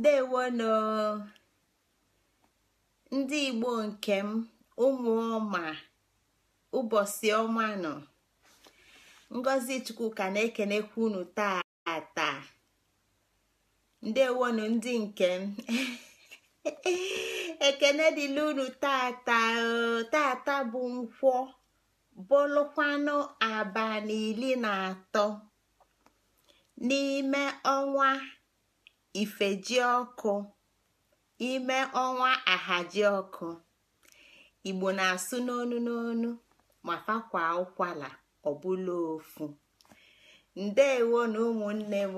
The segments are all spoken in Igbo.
ndewono ndị igbo nke m ụmụ ọma ụbọchị ọma nọ ngozi chukwu ka na ekenekwu unu tata ndewonu ndị nke m ekene dịla unu taa tata bụ nkwọ bụlụkwanụ abalị iri na atọ n'ime ọnwa ifejiọkụ ọkụ ime ọnwa ahaji ọkụ igbo na-asụ n'onu n'onu ma fakwa ụkwala ọbụla ofu ndeewo na ụmụnne m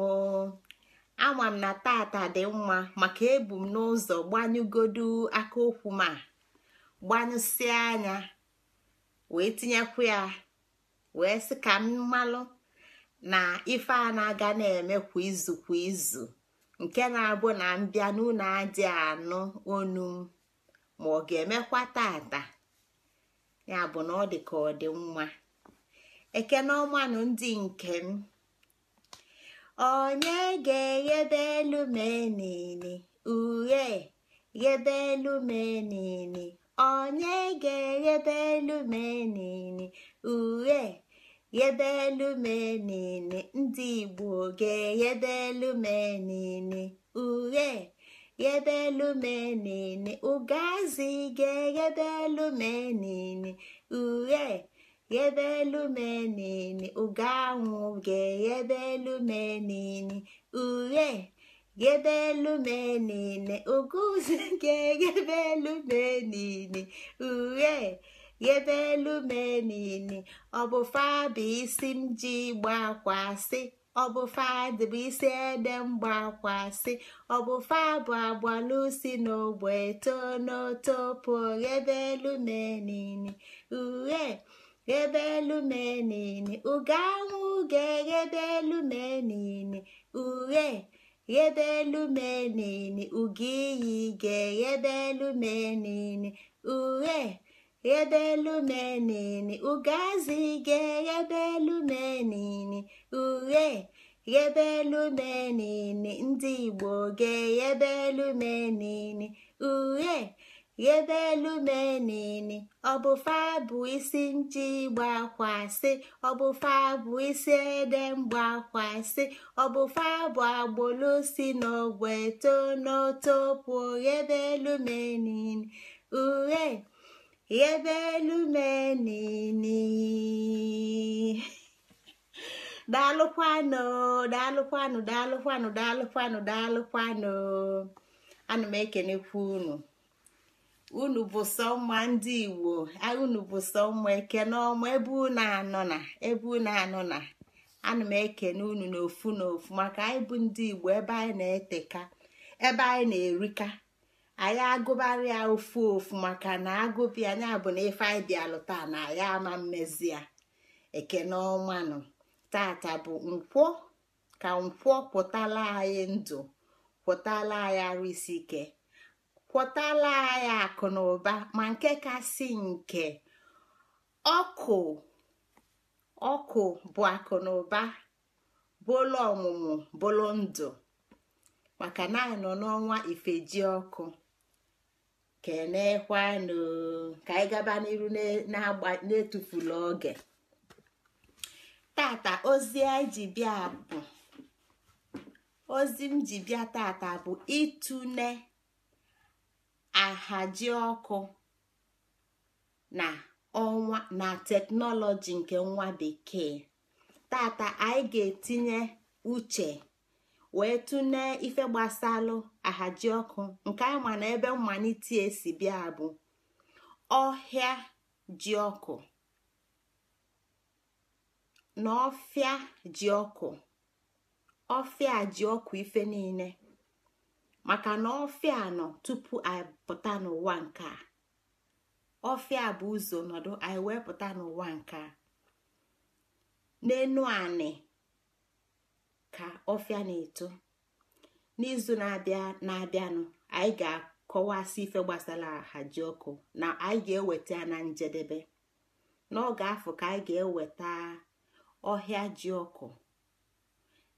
ama m na tata dị mma maka ebu m n'ụzọ gbanyụgodu aka okwu ma gbanyụsịa anya wee tinyekwu ya wee sị ka m malụ na ife a na-aga na-eme kwa izu kwa izu nke na-abụ na mbịa n'ụlọ adị anụ onu m ma ọ ga-emekwa tata ya bụ na ọ dị ka ọ dị nwa ekene ọmanụ ndị nke m onye ga eghebelu elu menini uhe ghebelu elu menini onye ga-eghebe elu menini uhe yebelumenini ndị igbo ga-eyebelumenini uhe yebelumenini ugazi ga-eyebelumenini uhe yebelumenini uganwụ ga-eyebelumenini uhe yebelumenini uguzi ga-eyebelumenini uhe ebe elu menini ọbụfa bụ isi m ji gbakwasị ọbụfa bụ fadị bụ isi ede mgbakwasị ọ bụ agbalusi n'ogbe tonotopo ghebe elu menini uhe ghebe elu menini uge anwụ ga elu menini uhe ghebe elu menini uge iyi ga ebe elu menini uhe ghebelumeni ugazi geghebelumeni uhe ghebelumeni ndị igbo geghebelumeni uhe ghebelumeni ọbụfa bụ isi nji gbakwasị ọbụfa bụ isi ede mgbakwasị ọbụfa bụ agbolo si n'ọgwụ eto n'oto pụọ ghebelumeni uhe ebe elu menini daalụkwanụ daalụkwanụ daalụkwanụ daalụkwanụ daalụkwanụ ana m ekenekwa unu unu bụ sọ ndị igbo unu bụ sọ eke ekene ebe unu anọ na ebe unu anọ na ana m ekene unu n'ofu n'ofu maka anyị bụ ndị igbo ebe anyị na-eteka ebe anyị na-erika anyị agụbara ya ofu ofu maka na agụpụ ya bụ na ife anyị bịalụ taa na ya ama mmezi ya ekene ọmanụ tata bụ nkwọ ka nkwọ kwụtala anyị ndụ kwụtala anyị arụ isi ike kwụtala anyị akụ na ụba ma nke kasị nke ọkụ ọkụ bụ akụ na ụba bụlụ ọmụmụ bụlụ ndụ maka na anyị nọ n'ọnwa ifeji ọkụ kenekwanụ ka anyị gaba n'iru na-etufula oge tata ozi ji bịa bụ ozi m ji bịa tata bụ ịtụne ahaji ọkụ na teknọlọji nke nwa bekee tata anyị ga-etinye uche wee tụnye ife gbasalụ ahaji ọkụ nke anyị ma na ebe mmalite esi bịa bụ ọhịa ji ọkụ na ọfịa ji ọkụ ọfịa ji ọkụ ife niile maka na ọfịa nọ tupu anyị pụta n'ụwa nke a ọfịa bụ ụzọ nọdụ anyị wee n'ụwa nke a n'enu anị ka ọfịa na-eto n'izu na-abịa na-abịanụ anyị ga-akọwasị ife gbasara ji ọkụ na anyị ga-eweta ya na njedebe n'oge afọ ka anyị ga-eweta ọhịa ji ọkụ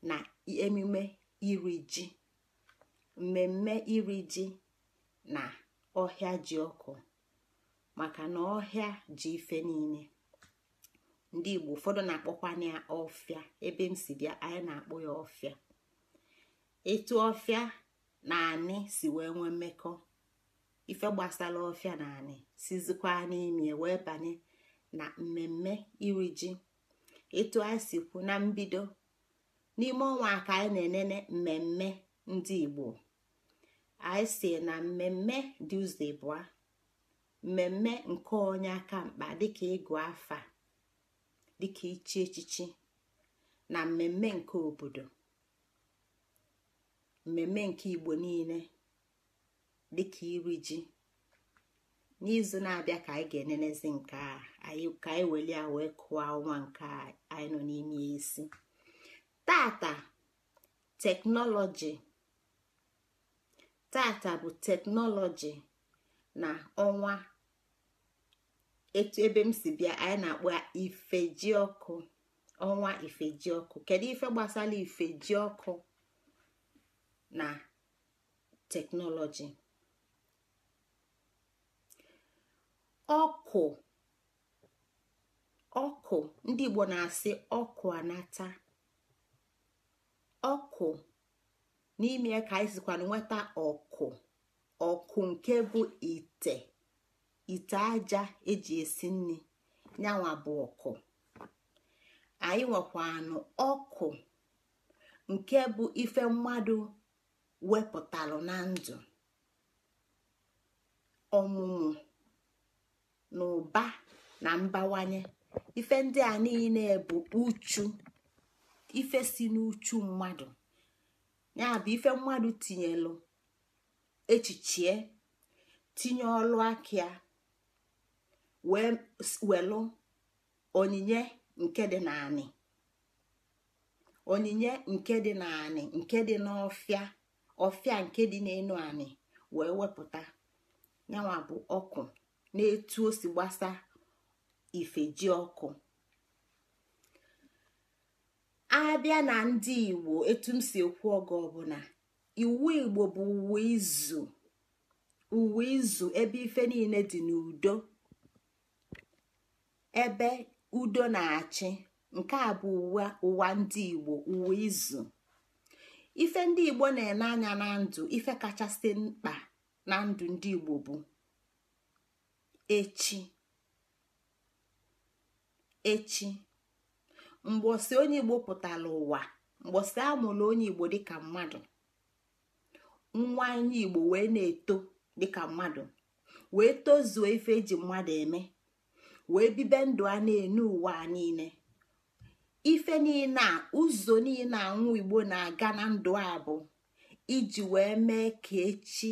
na emume iri ji mmemme iri ji na ọhịa ji ọkụ maka na ọhịa ji ife niile ndị Igbo ụfọdụ na-akpọkwana ya ọfịa ebe m si bịa anyị na-akpọ ya ọfịa etu ofia na anị si wee nwee mmekọ ife gbasara ọfịa na anị sizikwa n'ime wee banye na mmemme iri ji etu anyị si kwu na mbido n'ime ọnwa aka anyị na-enene mmemme ndị Igbo anyị si na mmemme Tuesday bụa mmemme nke onye aka mkpa dịka ịgụ afa dịka ichi echichi na mmemme nke obodo mmemme nke igbo niile dịka iri ji n'izu na-abịa ka anyị ga-enenezi nke a anyị ka anyị welie ya wee kụọ ọnwa nke anyị nọ n'ime isi tata teknọlọji tata bụ teknọlọji na ọnwa etu ebe m si bịa anyị na-akpọ ifejiọkụ ọnwa ifejiọkụ kedu ife gbasara ifejiọkụ na teknọlọji ọkụ ọkụ ndị Igbo na-asị ọkụ anata ọkụ n'ime ka anyị sikwa nweta ọkụ ọkụ nke bụ ite ite aja eji esi nri nyanwa bụ ọkụ anyị nwekwanụ ọkụ nke bụ ife mmadụ wepụtalụ na ndụ ọmụmụ na ụba na mbawanye ife ndị a niile bụ uchu ife si n'uchu mmadụ ya bụ ife mmadụ tinyelụ echichie tinye ọlụ aka ya wee welụ onyinye nke dị naanị onyinye nke dị naanị nke dị n'ọfịa ofia nke dị n'elu anị wee wepụta yanwa bụ ọkụ na-etu o si gbasa ifeji ọkụ abịa na ndị igbo etu m si ekwu oge ọbụla iwu igbo bụ uwe izu uwe izu ebe ife niile dị n'udo ebe udo na-achị nke a bụ ụwa ndị igbo uwe izu ife ndị igbo na-ene anya na ndụ ife kachasị mkpa na ndụ ndị igbo bụ echi echi mgbọsị onye igbo pụtara ụwa mgbọsị amụrụ onye igbo dịka mmadụ nwa anyị igbo wee na-eto dịka mmadụ wee tozuo ife eji mmadụ eme wee bibe ndụ a na-enu ụwa niile ife niile a ụzọ niile anwụ igbo na-aga na ndụ a bụ iji wee mee ka echi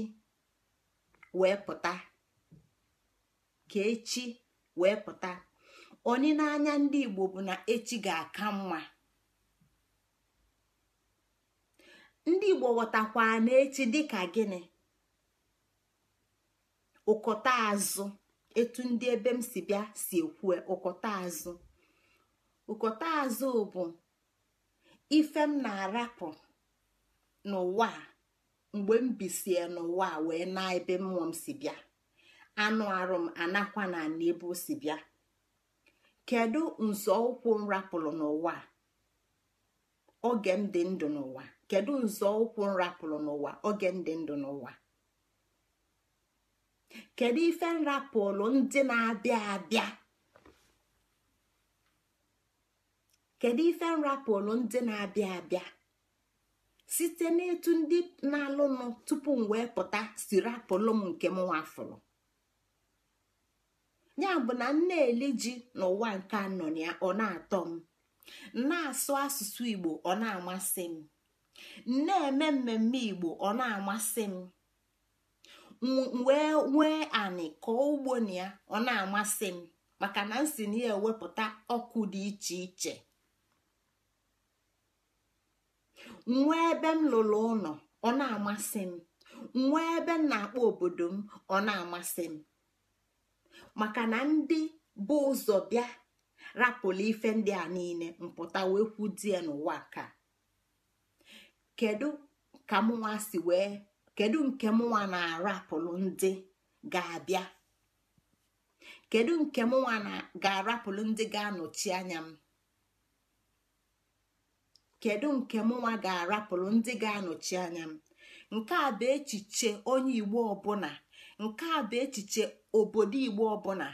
wee pụta ka echi wee pụta ndị igbo bụ na echi ga-aka mma ndị igbo ghọtakwa na echi dị ka gịnị ụkọta azụ etu ndị ebe m si bịa si ekwu ụkọta azụ ụkọta azụ bụ ife m na-arapụ n'ụwa mgbe m bisie n'ụwa wee na ebe mmụọ m si bịa anụ arụ m anakwa na ana o si bịa kedu nzọụkwụ m rapụrụ n'ụwa oge m dị ndụ n'ụwa kedu nzọụkwụ m rapụrụ n'ụwa oge m dị ndụ n'ụwa kedu ife m ndị na-abịa abịa kedu ife nrapụlụ ndị na-abịa abịa site n'etu ndị na alụ nụ tupu m wee pụta si rapụlụ m nke m nwafụrụ ya bụ na m na-eli ji n'ụwa nke anọ ya ọ na-atọ m na-asụ asụsụ igbo ọ na-amasị m na-eme mmemme igbo ọ na-amasị m wee nwee anị kọọ ugbo na ya ọ na-amasị m maka na m si na ya ewepụta ọkụ dị iche iche nwa ebe m lụrụ ụlọ ọ na-amasị m nwee ebe m na-akpọ obodo m ọ na-amasị m maka na ndị bụ ụzọ bịa rapụlụ ife ndị a niile mpụta wee kwudie n'ụwa ka kedu ka mụnwa si wee kedu nke mụnwa na-arapụlụ ndị ga-abịa kedu nke mụnwa ga-arapụlụ ndị ga-anọchi anya m kedu nke mụnwa ga-arapụrụ ndị ga-anọchi anya m nke a bụ echiche onye igbo ọbụla nke a bụ echiche obodo igbo ọbụla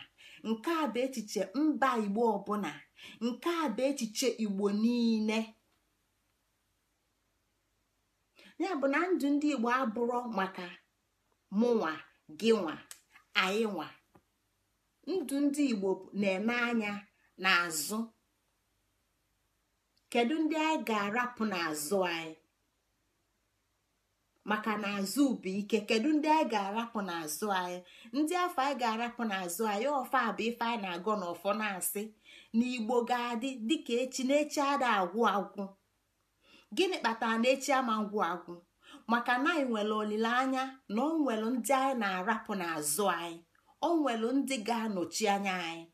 nke a bụ echiche mba igbo ọbụla nke a bụ echiche igbo niile ya bụ na ndụ ndị igbo abụrụ maka mụnwa gịnwa nwa ndụ ndị igbo na-eme anya n'azụ kedu ndị anyị ga-arapụ n'azụ anyị maka na azụ bụ ike kedu ndị anyị ga-arapụ n'azụ anyị ndị afọ anyị ga-arapụ n'azụ anyị ofe bụ ife anyị na agụ n'ọfọ na-asị na igbo ga-adị dịka echi na echi ada agwụ agwụ gịnị kpatara na echi ama ngwụ agwụ maka na anyị nwere olileanya na ọ nwere ndị anyị na-arapụ n'azụ anyị ọ nwere ndị ga-anọchi anya anyị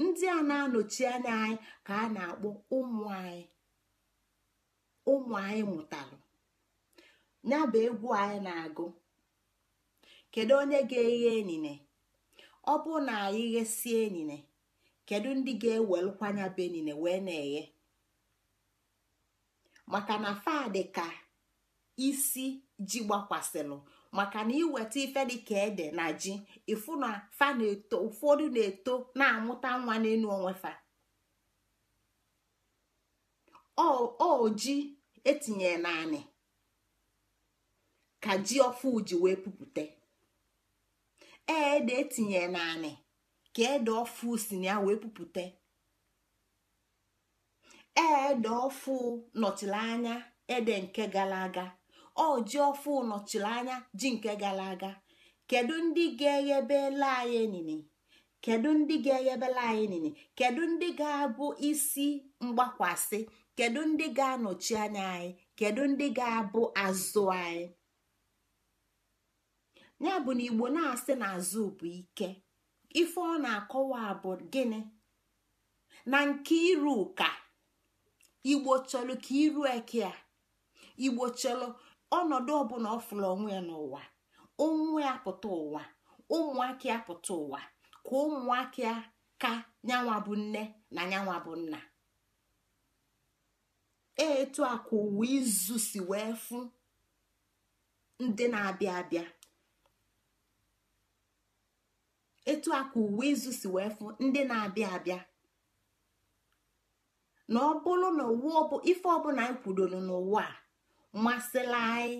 ndị a na-anọchi anya anyị ka a na-akpọ ụmụ anyị ụmụ anyị mụtalụ ya bụ egwu anyị na-agụ kedu onye ga-eghe enine ọ bụ na anyị ghesie enyine kedu ndị ga-ewelụkwanya bụ enine wee na-eghe maka na fadị ka isi ji gbakwasịlụ maka na iweta ife dịka ede na ji ifu na na-eto ụfọdụ na-eto na-amụta nwa n'elu onwe fa o ji etinye naanị ka ji ọfụ ji wee pupụta e, ede etinye naanị ka ede ofu si na ya wee pupụta e, ede ofu nọchiri anya ede nke gara aga ọ ji ọfụ nọchiri anya ji nke gara aga kedu ndị ga-eghebela anyị enini kedu ndị ga-eghebela anyị kedu ndị ga-abụ isi mgbakwasị kedu ndị ga-anọchi anya anyị kedu ndị ga-abụ azụ anyị ya bụ na igbo na-asị na azụ bụ ike ife ọ na-akọwa bụ gịnị na nke iru ụka igbo iru eke a ọnọdụ ọbụla ọ fụrụ onwe ya n'ụwa onwe ya pụta ụwa ụmụaka ya pụta ụwa ka ụmụaka ya ka nyanwa bụ nne na nyanwa bụ nna e, etu a ka ụwa izu si wee fụ ndị na-abịa abịa etu a ka izu si wee fụ ndị na-abịa abịa na ọ bụrụ na ife ọbụla anyị kwudoro n'ụwa a masịla anyị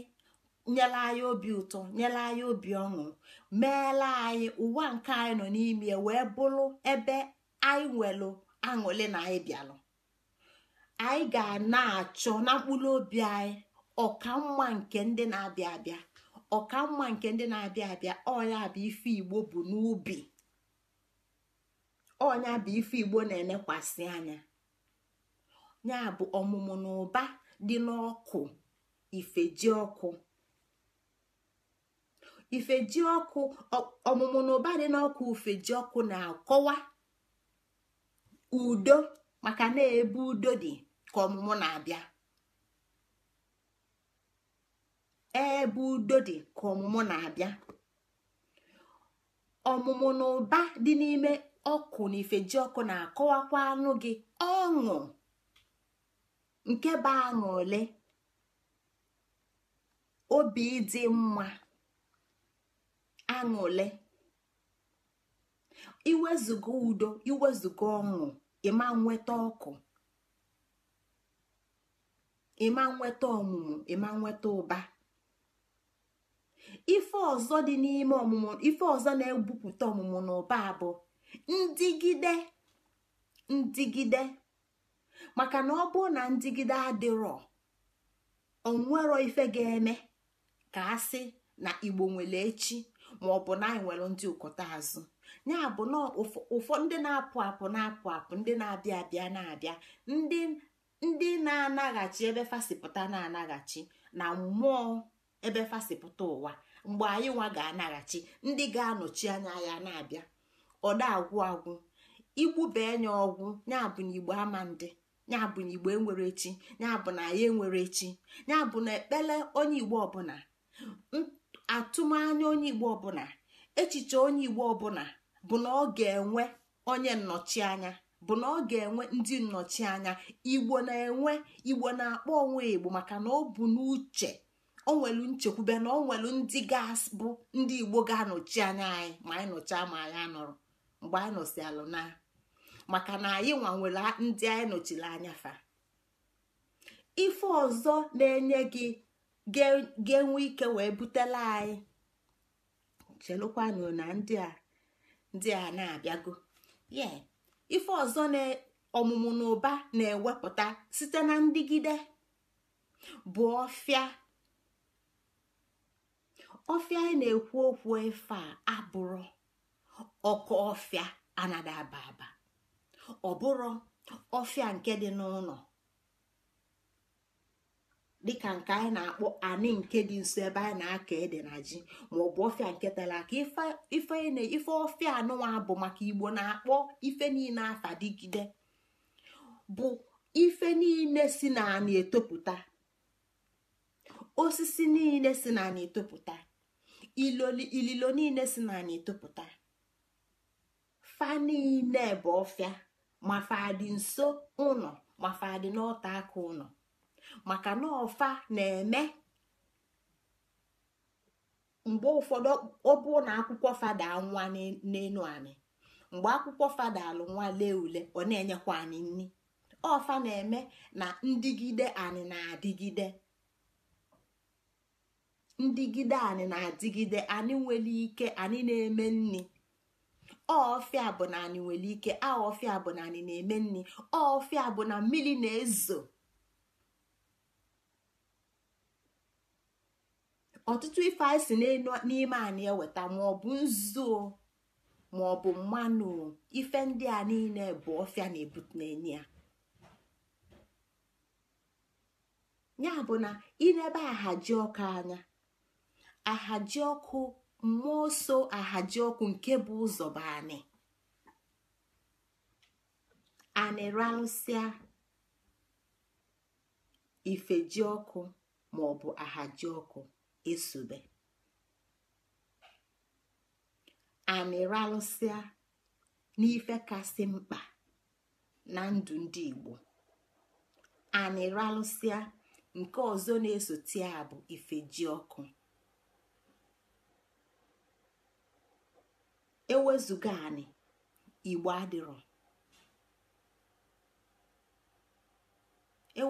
nyela anyị obi ụtọ nyela anyị obi ọṅụ meela anyị ụwa nke anyị nọ n'ime wee bụrụ ebe anyị nwelụ aṅụle na anyị bịalụ anyị ga na-achọ na mkpụrụ obi anyị ọkamma nke ndị na-abịa abịa ọkamma nke ndị na-abịa abịa ọnya bụ ife igbo bụ n'ubi ọnya bụ ife igbo na elekwasị anya ya bụ ọmụmụ na ụba dị n'ọkụ ifeji ọkụ ifeji ọkụ ọmụmụ ụba dị n'ọkụ ifeji ọkụ na-akọwa udo maka na ebe udo dị ka ọmụmụ na-abịa ebe udo dị ka ọmụmụ na-abịa ọmụmụ ụba dị n'ime ọkụ na ifeji ọkụ na-akọwakwa anụ gị ọṅụ nke bụ aṅụ ole obi dị mma aṅụle iwezuga udo iwezuga ọṅụ ịma nweta ọkụ ịma nweta ọmụmụ ịma nweta ụba ife ọzọ dị n'ime ọmụmụ ife ọzọ na egbupụta ọmụmụ na ụba bụ ndigide ndigide maka na ọ bụrụ na ndigide adịrọ onwero ife ga-eme ka a na igbo nwere echi ma ọ bụ na anyị nwere ndị ụkọta azụ ya bụ na ụfọ ndị na-apụ apụ na-apụ apụ ndị na-abịa abịa na-abịa ndị na-anaghachi ebe fasịpụta na-anaghachi na mmụọ ebe fasịpụta ụwa mgbe anyị nwa ga-anaghachi ndị ga-anọchi anya ya na-abịa ọda agwụ agwụ bee nya ọgwụ nyabụ na igbo ama ndị nyabụ na igbo enwere echi nyabụ na ya enwere echi nyabụ na ekpele onye igbo ọbụla atụmanya onye igbo ọbụla echiche onye igbo ọbụla bụ na ọ ga-enwe onye nnọchianya bụ na ọ ga-enwe ndị nnọchianya igbo na-enwe igbo na-akpọ onwe igbo maka na ọ bụ n'uche onwelu nwelu nchekwube na o ndị gas bụ ndị igbo ga-anọchi anya anyị ma anyị nọchaa ma anyị anọrọ mgbe anyị nọsi na maka na anyị nwa ndị anyị nọchiri anya fa ife ọzọ na-enye gị ga-enwe ike wee butela anyị chelụkwanụ na ndị a ndị a na-abịago ye ife ọzọ na ọmụmụ na ụba na-ewepụta site na ndigide bụ ọfịa ọfịa anyị na-ekwu okwu efe a abụrụ ọkụ ọfịa anada aba aba ọ bụrụ ọfịa nke dị n'ụlọ dịka nke anyị na-akpọ anị nke dị nso ebe anyị na-aka ede na ji maọbụ ọfịa nke tara aka ife ọfịa anụnwa bụ maka igbo na-akpọ ife niile afadigide bụ ife niile si na na etopụta osisi niile si na na etopụta ililo niile si na etopụta fa niile bụ ọfịa ma nso ụnọ ma n'ọta aka maka na ọfa na-eme mgbe ụfọdụ ọ bụ na akwụkwọ fada nwa n'elu anyị mgbe akwụkwọ fada alụ nwa lee ule ọ na-enyekwa anyị nri ọfa na-eme na ndịgide anyị na-adịgide ndịgide anyị na-adịgide anyị nwere ike anyị na-eme nri ọfịa bụ na anyị nwere ike a bụ na anyị na-eme nri ọfịa bụ na mmiri na-ezo ọtụtụ ife anyị si n'ime anyị eweta maọbụ ọ bụ nzu ma mmanụ ife ndị a niile bụ ọfịa na-ebute ya ya bụ na na-ebe ahaji ọkụ anya ahaji ọkụ mmụọ so ahaji ọkụ nke bụ ụzọ bụ anị anị ife ji ọkụ ma ahaji ọkụ esube amịralụsịa n'ife kasị mkpa na ndụ ndị Igbo anịralụsịa nke ọzọ na-esote a bụ ife ji ọkụ ewezụga Igbo adịrọ e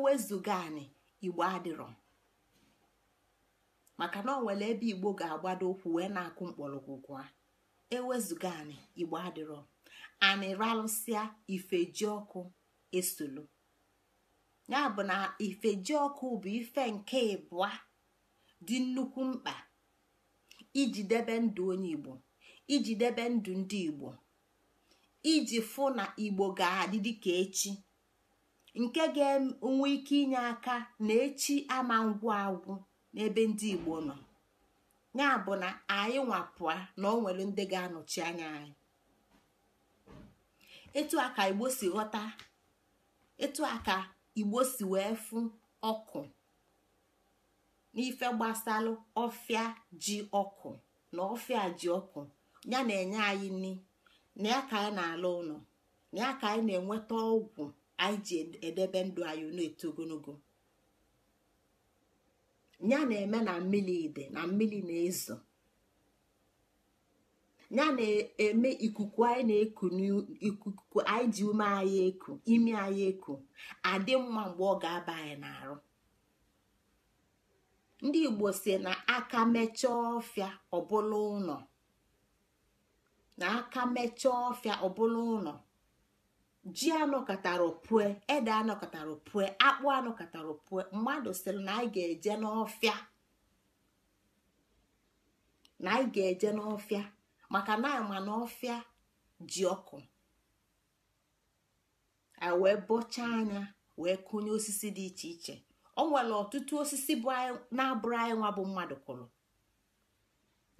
anị Igbo adịrọ maka na ọ ebe igbo ga-agbado ụkwụ wee na-akụ mkpọrọgwụ gwa ewezụga anị igbo adịrọ anị ralụsịa ifeji ọkụ esolu ya bụ na ifeji ọkụ bụ ife nke ịbụa dị nnukwu mkpa iji debe ndụ onye igbo iji debe ndụ ndị igbo iji fụ na igbo ga-adị dịka echi nke ga-enwe ike inye aka na echi ama ngwụ agwụ n'ebe ndị igbo nọ ya bụ na anyị nwapụa na ọ nwere ndị ga-anọchi anya anyị etu a ka igbo si ghọta etu a ka igbo si wee fụ ọkụ n'ife gbasalụ ọfịa ji ọkụ na ọfịa ji ọkụ ya na-enye anyị nri na ya ka anyị na-ala ụlọ na ya ka anyị na-enweta ọgwụ anyị ji edebe ndụ anyị na-eto ogologo ya na-eme na mmiri dị na mmiri na-ezo ya na-eme ikuku anyị na-eku n'ikuku anyị ji ume anyị eku imi anyị eku adị mma mgbe ọ ga-aba anyị n'arụ ndị igbo si na aka mechaa ọfịa ọbụla ụlọ na aka mechaa ọfịa ọbụla ụlọ ji anọkọtara pue ede anọkọtara pue akpụ anọkọtara pue mmadụ sịrị na anyị ga-eje n'ọfịa na anyị ga-eje n'ọfịa maka na ma n'ọfịa ji ọkụ A wee bọchaa anya wee kụnye osisi dị iche iche o nwere ọtụtụ osisi na-abụrụ anyị nwa bụ mmadụ kụrụ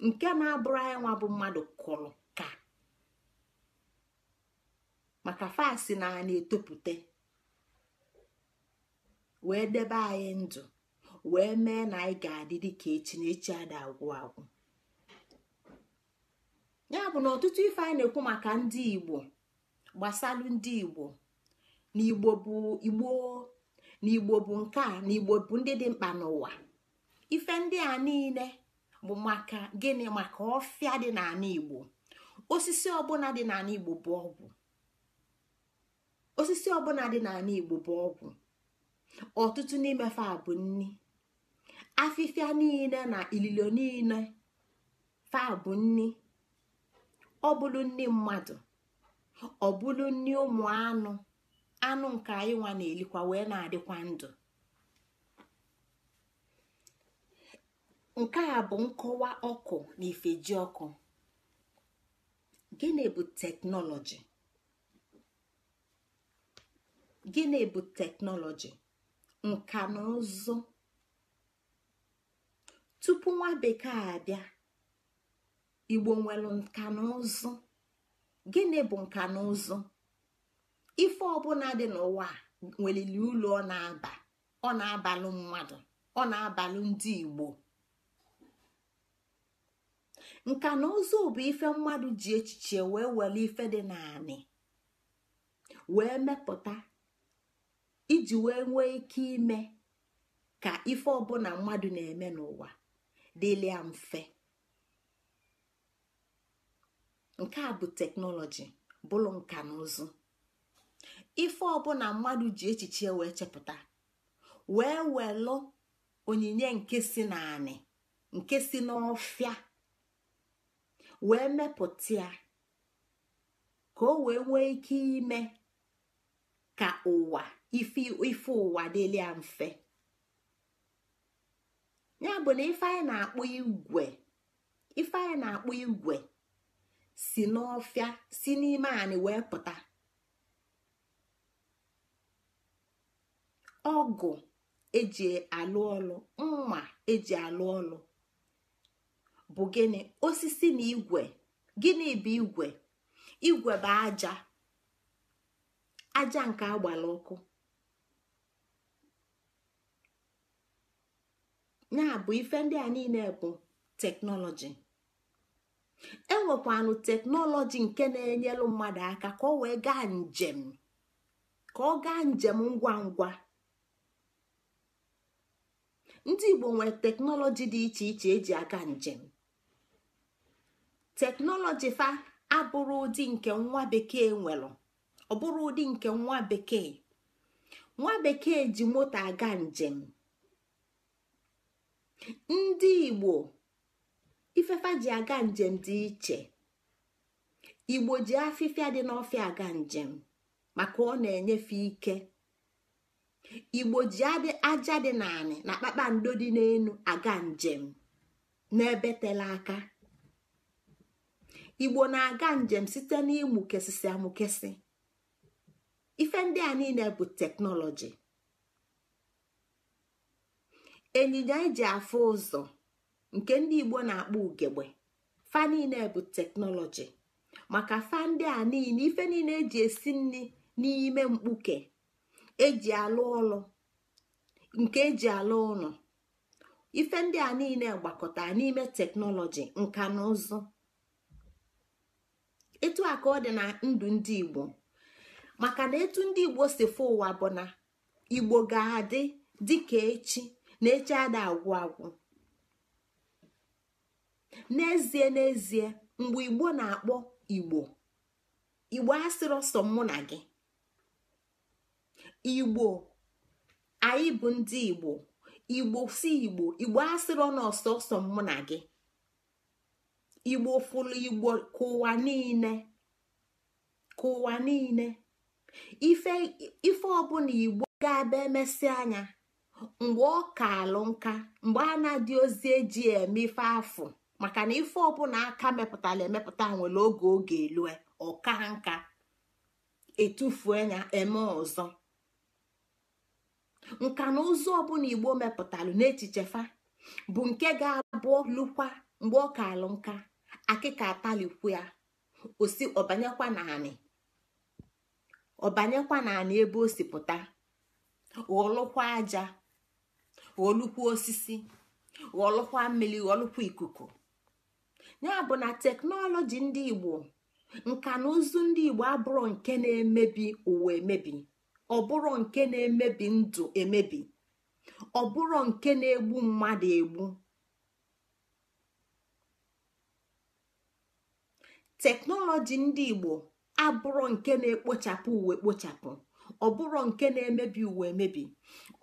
nke na-abụrụ anyị nwa bụ mmadụ kụrụ maka fasi na na etopụta wee debe anyị ndụ wee mee na anyị ga-adị dịka echi na echi ada agwụ agwụ ya bụ na ọtụtụ ife anyị na-ekwu maka ndị igbo gbasalụ ndị igbo na igbo bụ bụ nke a na igbo bụ ndị dị mkpa n'ụwa ife ndị a niile bụ maka gịnị maka ọfịa dị n'ala igbo osisi ọbụla dị n'ala igbo bụ ọgwụ osisi ọbụla dị n'ala igbo bụ ọgwụ ọtụtụ n'ime a bụ nni afịfịa niile na ililo niile fa bụ nni ọ nni mmadụ ọ nni ụmụ anụ anụ nke anyị nwa na-elikwa wee na-adịkwa ndụ nke a bụ nkọwa ọkụ na ifeji ọkụ gịnị bụ teknọlọji gịnị bụ teknọlọji nka na ụzụ tupu nwa bekee abịa igbo nwere nka na ụzụ gịnị bụ nka na ụzụ ife ọbụla dị n'ụwa nwelili ụlọ ọ na-aba ọ na-abalụ mmadụ ọ na-abalụ ndị igbo nka na ụzụ bụ ife mmadụ ji echiche wee were ife dị naanị wee mepụta iji wee nwee ike ime ka ife ọbụla mmadụ na-eme n'ụwa dịịrịa mfe nke a bụ teknọlọji bụrụ nka na ụzụ ife ọbụla mmadụ ji echiche wee chepụta wee welụ onyinye nke si naanị nke si n'ọfịa wee mepụta ya ka o wee nwee ike ime ka ụwa ife ụwa dịlị ya mfe ya bụ na ife anyị na akpụ igwe ife anyị na akpụ igwe si n'ọfịa si n'ime anyị wee pụta ọgụ eji alụ ọlụ mma eji alụ ọlụ bụ gịnị osisi na igwe gịnị bụ igwe igwe bụ aja aja nke agbara ọkụ ya bụ ife ndị a niile bụ teknọlọji enwekwanụ teknọlọji nke na-enyelụ mmadụ aka ka ọ wee gaa njem ka ọ gaa njem ngwa ngwa ndị igbo nwere teknọlọji dị iche iche eji aga njem teknọlọji fa abụrụ ụdị nke nwa bekee nwere ọ bụrụ ụdị nke nwa bekee nwa bekee ji moto aga njem ndị igbo ifefa ji aga njem dị iche igbo ji afịfịa dị n'ọfịa aga njem maka ọ na-enyefe ike igbo ji aja dị n'anị na kpakpando dị n'elu aga njem n'ebe tela aka igbo na-aga njem site n'ịmụkesịsị amụkesị ife ndị a niile bụ teknọlọji ịnyịnya eji afụ ụzọ nke ndị igbo na-akpọ ugegbe fa niile bụ teknọlọji maka fa ndị a niile ife niile eji esi nri n'ime mkpuke eji alụ ọlụ nke eji alụ ụlọ ife ndị a niile gbakọtara n'ime teknọlọji nka na ụzụ etu a ka ọ dị na ndụ ndị igbo maka na etu ndị igbo si fụ ụwa bụ na igbo ga-adị dịka echi na ada agwụ agwụ n'ezie n'ezie mgbe igbo na-akpọ igbo igbo asịrị ọsọ mụ na gị igbo anyị bụ ndị igbo igbo si igbo igbo asịrọ ọsọ ọsọ mụ na gị igbo fụlụ igbo kụwa niile kụwa niile ife ọbụla igbo ga-abịa emesị anya mgbe ọ ka alụ nka mgbe a na-adị ozi eji eme ife afụ maka na ife ọbụla aka mepụtara emepụta nwere oge oge elu ọka nka etufue ya eme ọzọ nka na ụzụ ọbụla igbo mepụtara n'echiche fa bụ nke ga-abụ lụkwa mgbe ọ ka alụ nka akịka atalikwu ya osi ọbanyekwa naanị ọbanyekwa naanị ebe o si pụta aja ghọlụkwa osisi ghọlụkwa mmiri ghọlụkwa ikuku ya bụ na teknọlọji ndị igbo nka na ụzụ ndị igbo abụrụ nke na-emebi ụwa emebi ọbụrụ nke na-emebi ndụ emebi ọbụrụ nke na-egbu mmadụ egbu teknọlọji ndị igbo abụrụ nke na-ekpochapụ uwe ekpochapụ ọbụrụ nke na-emebi uwe emebi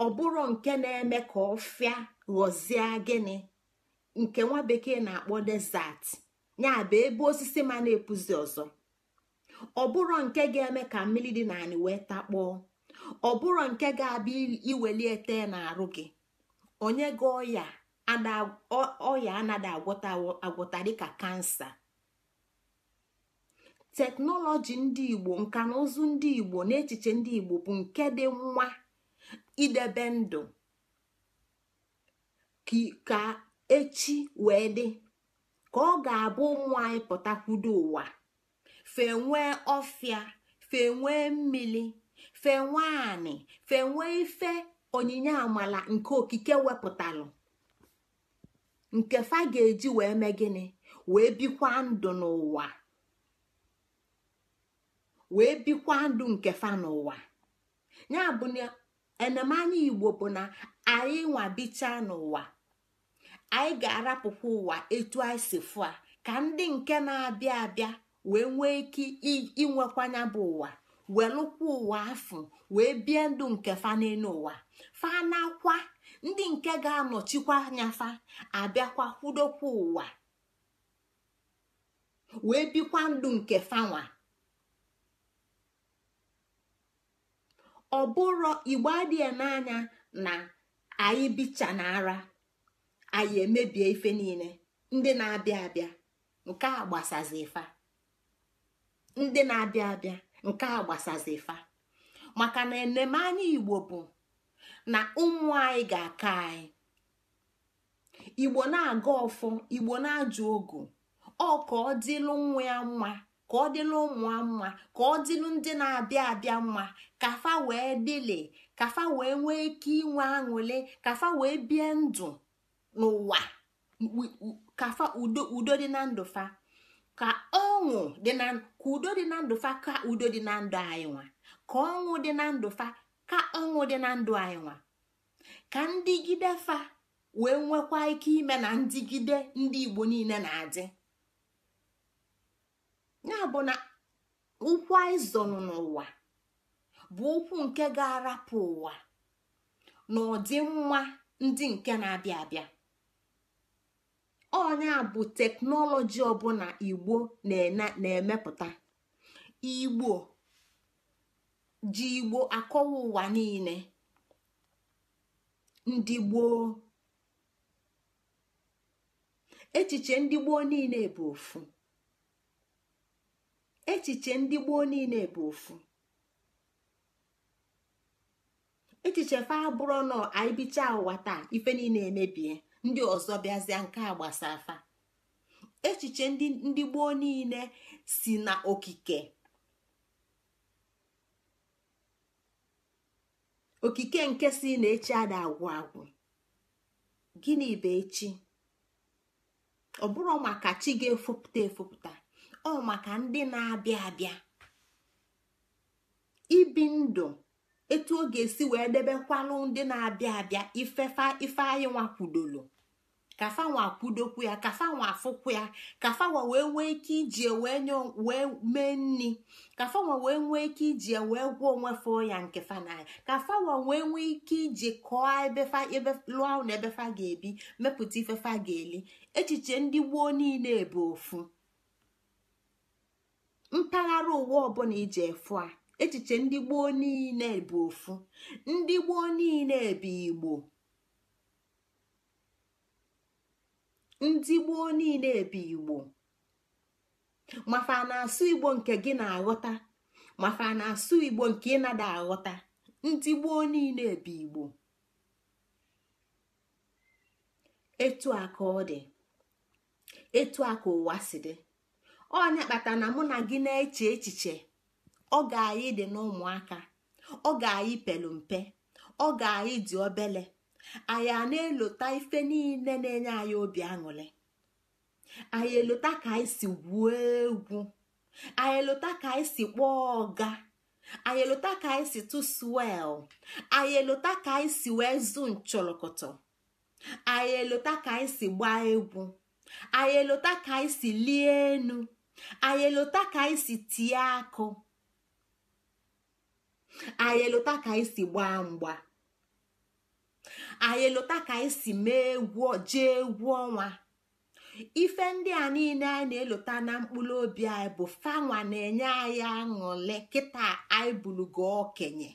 ọbụrụ nke na-eme ka fịa ghọzie gịnị nke nwa bekee na-akpọ desert ya bụ ebe osisi ma na-epuzi ọzọ ọbụrụ nke ga-eme ka mmiri dị n'anị wee takpọọ ọbụrụ nke ga-abịa iweli ete na-arụ gị onye gị ọya ọya anaghị agwọta agwọta dịka kansa teknọlọji ndị igbo nka na ụzụ ndị igbo na echiche ndị igbo bụ nke dị nwa idebe ndụ ka echi wee dị ka ọ ga-abụ ụmụ anyị pụtakwudo ụwa fenwee ọfịa fenwee mmiri fenwee anị fenwee ife onyinye amala nke okike wepụtalụ nke fa ga-eji wee mee gịnị wee bikwa ndụ n'ụwa wee bikwa ndụ nke fa n'ụwa ya bụ na enemanya igbo bụ na anyị nwabicha n'ụwa anyị ga-arapụkwa ụwa etu anyị si fụ a ka ndị nke na-abịa abịa wee nwee ike inwekwanya bụ ụwa welụkwa ụwa afọ wee bie ndụ nke fa n'elu ụwa fa nakwa ndị nke ga-anọchikwa anya fa abịakwa kwudokwa ụwa wee bikwa ndụ nke fanwa ọ bụrụ igbo adịghị n'anya na anyị bicha na ara anyị emebie ife niile ndị na-abịa abịa nke a gbasazi ndị na-abịa abịa nke a gbasazi maka na enemanya igbo bụ na ụmụ anyị ga-aka anyị igbo na-aga ọfọ igbo na-ajụ ogu ọ ka ọ dịlụ nwa ya mma ka ọ dịla ụmụ mma ka ọ dịlụ ndị na-abịa abịa mma kafa wee dịle ike inwe aṅụle n'ụwa kafa udo dị na ndụ ka ọṅụ dị na ka udo dị na ndụ ka udo dị na ndụ anyị ka ọṅụ dị na ndụ fa ka ọṅụ dị na ndụ ka fa wee nwekwa ike ime na ndịgide ndị igbo niile na-adị ya bụ na ụkwụ aịzọn n'ụwa bụ ụkwụ nke ga-arapụ ụwa na nwa ndị nke na-abịa abịa ọnya bụ teknọlọji ọbụla igbo na-emepụta igbo ji igbo akọwa ụwa niile ndị gboo echiche ndị gboo niile bụ ofu echiche ndị gboo niile bụ ofu echiche fa abụrụ nọ anyị bicha ụwa taa ife niile emebie ndị ọzọ bịazịa nke a gbasaa echiche ndị gboo niile si na okike okike nke si na echi agwụ agwụ gịnị bụ echi ọ bụrụ maka chi ga-efopụta efopụta ọ maka ndị na-abịa abịa ibi ndụ etu ọ ga-esi wee debekwanụ ndị na-abịa abịa ifefa ife anyị nwakwudolo kafa nwa kwudokwu ya kafa nwa afụkwu ya kafa nwa wee nwee ike iji wee nye wee mee nri kafa nwa wee nwee ike iji wee gwọ onwe fụọ ya nke fa na kafa nwa wee nwee ike iji kọọ ebefa ebe lụọ ahụ na ebefa ga-ebi mepụta ifefa ga-eli echiche ndị gboo niile bụ ofu mpaghara ụwa ọbụla ije efu a echiche ndị gboo niile bụ ofu ndị gboo niile bụ igbo ndị gboo niile bụ igbo mafa na-asụ igbo nke gị na-aghọta mafa na-asụ igbo nke ị nada aghọta ndị gboo niile bụ igbo etu aka ọ dị etu aka ụwa si dị ọnya kpata na mụ na gị na-eche echiche ọ ga-ayị dị n'ụmụaka ọ ga pelu mpe ọ ga-ayị dị obele anyị a na-elota ife niile na-enye anyị obi aṅụrị anyị elota ka anyị si gwuo egwu anyị elota ka anyị si kpọọ ọga anyị elota ka anyị si tụswel anyị elota ka anyị si wee zu nchọlọkọtọ anyị elota ka anyị si gbaa egwu anyị elota ka anyị si lie enu anyị elota ka anyị tie akụ anyị ka anyị si gbaa mgba anyị elota ka anyị si mee egwu jee egwu ọnwa ife ndị a niile anyị na-elota na mkpụrụ obi anyị bụ fanwa na-enye anyị aṅụle kịta anyị bulugo okenye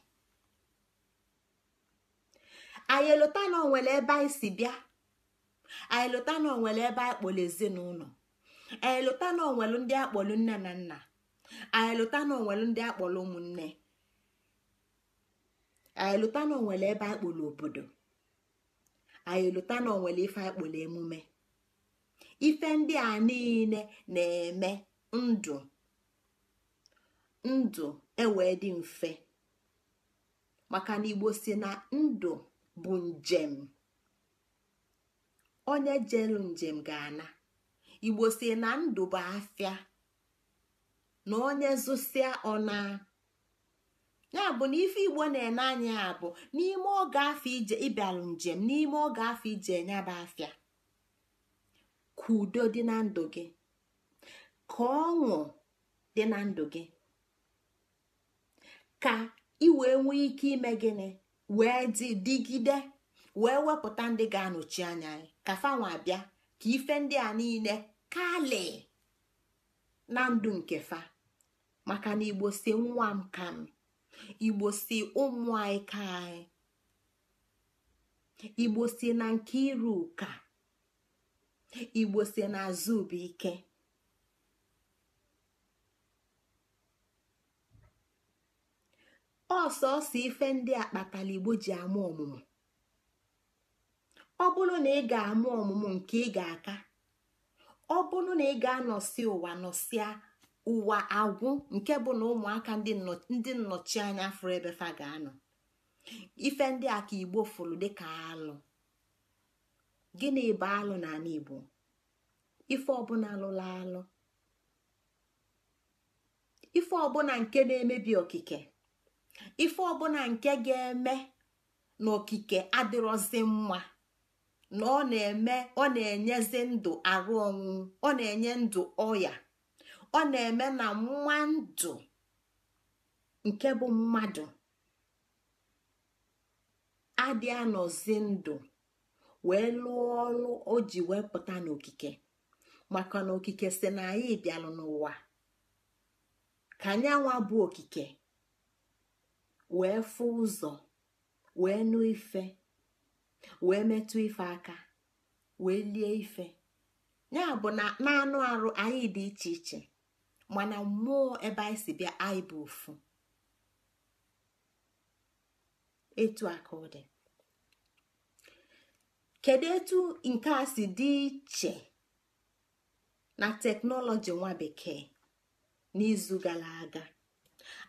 anyị elota na onwere ebe anyị si bịa anyị elota na onwere ebe anyị kpọrọ ezinụlọ anyịlụta na onwelu ndị akpọlụ nne na nna anyịlụta na onwelu ndị akpọlụ ụmụnne anyịlụta na onwere ebe akpọlụ obodo anyịlụta na onwere ife akpọlụ emume ife ndị a niile na-eme ndụ ndụ ewee dị mfe maka na igbo si na ndụ bụ njem onye jelu njem ga-ana igbo si na ndụ bụ afịa na onye zụsịa ọna ya bụ na ife igbo na-ene anya ya bụ n'ime oge afọ ije ịbịaru njem n'ime oge afọ ije enyaba afịa ka udo dị na ndụ gị ka ọṅụ dị na ndụ gị ka ị wee nwee ike ime gịnị wee dịgide wee wepụta ndị ga-anọchi anya ka fanwa abịa ka ife ndị a niile kali na ndụ nke fa maka na igbo si nwa m ka m igbo si ụmụ anyị ka anyị igbo si na nke iru ụka igbo si na azụ bụ ike ọsọsọ ife ndị a kpatara igbo ji ama ọmụmụ ọ bụrụ na ị ga-ama ọmụmụ nke ị ga-aka ọ bụrụ na ị ga-anọsi ụwa nọsịa ụwa agwụ nke bụ na ụmụaka ndị nnọchi anya fụrụ ebe fa ga-anọ ife ndị a ka igbo fụrụ dịka alụ gịnị bụ alụ n'ala igbo ife ọbụla lụla alụ ife ọbụla nke na-emebi okike ife ọbụla nke ga-eme na okike adịrọzi mma na ọ na-eme ọ na-enyezi ndụ arụ ọnwụ ọ na-enye ndụ ọya ọ na-eme na nwa ndụ nke bụ mmadụ adị anọzi ndụ wee lụọ ọrụ o ji wee pụta n'okike maka na okike si na anyị bịalụ n'ụwa ka anyanwa bụ okike wee fụ ụzọ wee nụ ife wee metụ ife aka wee lie ife ya bụ na anụ arụ anyị dị iche iche mana mmụọ ebe anyị si bịa anyị bụ ofu etu aka ọ dị kedu etu nke a si dị iche na teknọlọji nwa bekee n'izu gara aga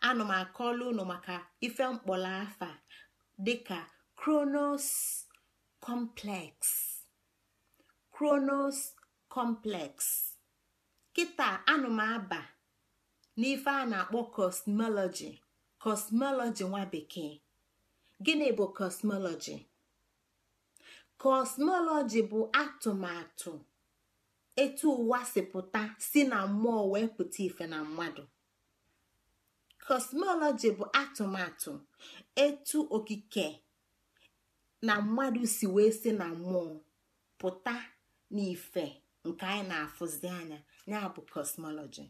ana m akọla unu maka ife mkpọrọ afa dịka kronos complex kronos complex kịta anụmaba n'ife a na-akpọ cosmology cosmology nwa bekee gịnị bụ cosmology cosmology bụ atụmatụ etu ụwa si pụta si na mmụọ wee pụta ife na mmadụ cosmology bụ atụmatụ etu okike na mmadụ si wee si na mmụọ pụta n'ife nke anyị na-afụzi anya ya bụ kosmọlọji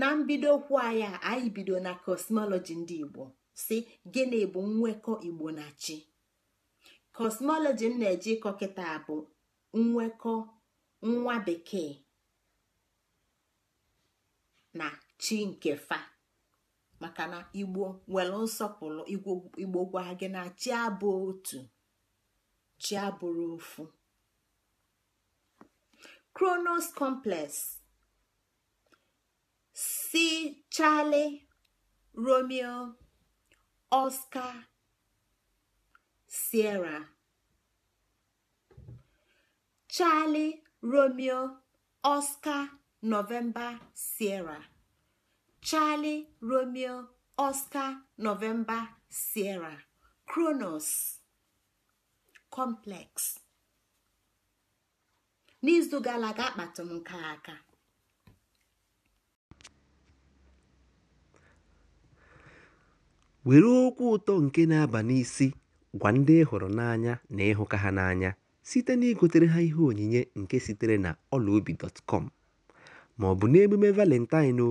na mbidokwu anyị anyị bido na kọsmọlọji ndị igbo si gịnị bụ nwekọ igbo na chi kosmọlọji m na-eji ịkọ kịta bụ nwekọ nwa bekee na chi nke fa maka na igbo nwere nsọpụrụ igbo gwa gị na chi abụ otu chi abụrụ ofu kronos complex si charlie romeo oscar sierra charlie romeo oscar november sierra Charlie Romeo Oscar novemba Sierra Kronos Complex n'izu gara aga nke aka were okwu ụtọ nke na-aba n'isi gwa ndị hụrụ n'anya na ịhụka ha n'anya site na igotere ha ihe onyinye nke sitere na ọlaobi dọtkọm ma n'emume valentine o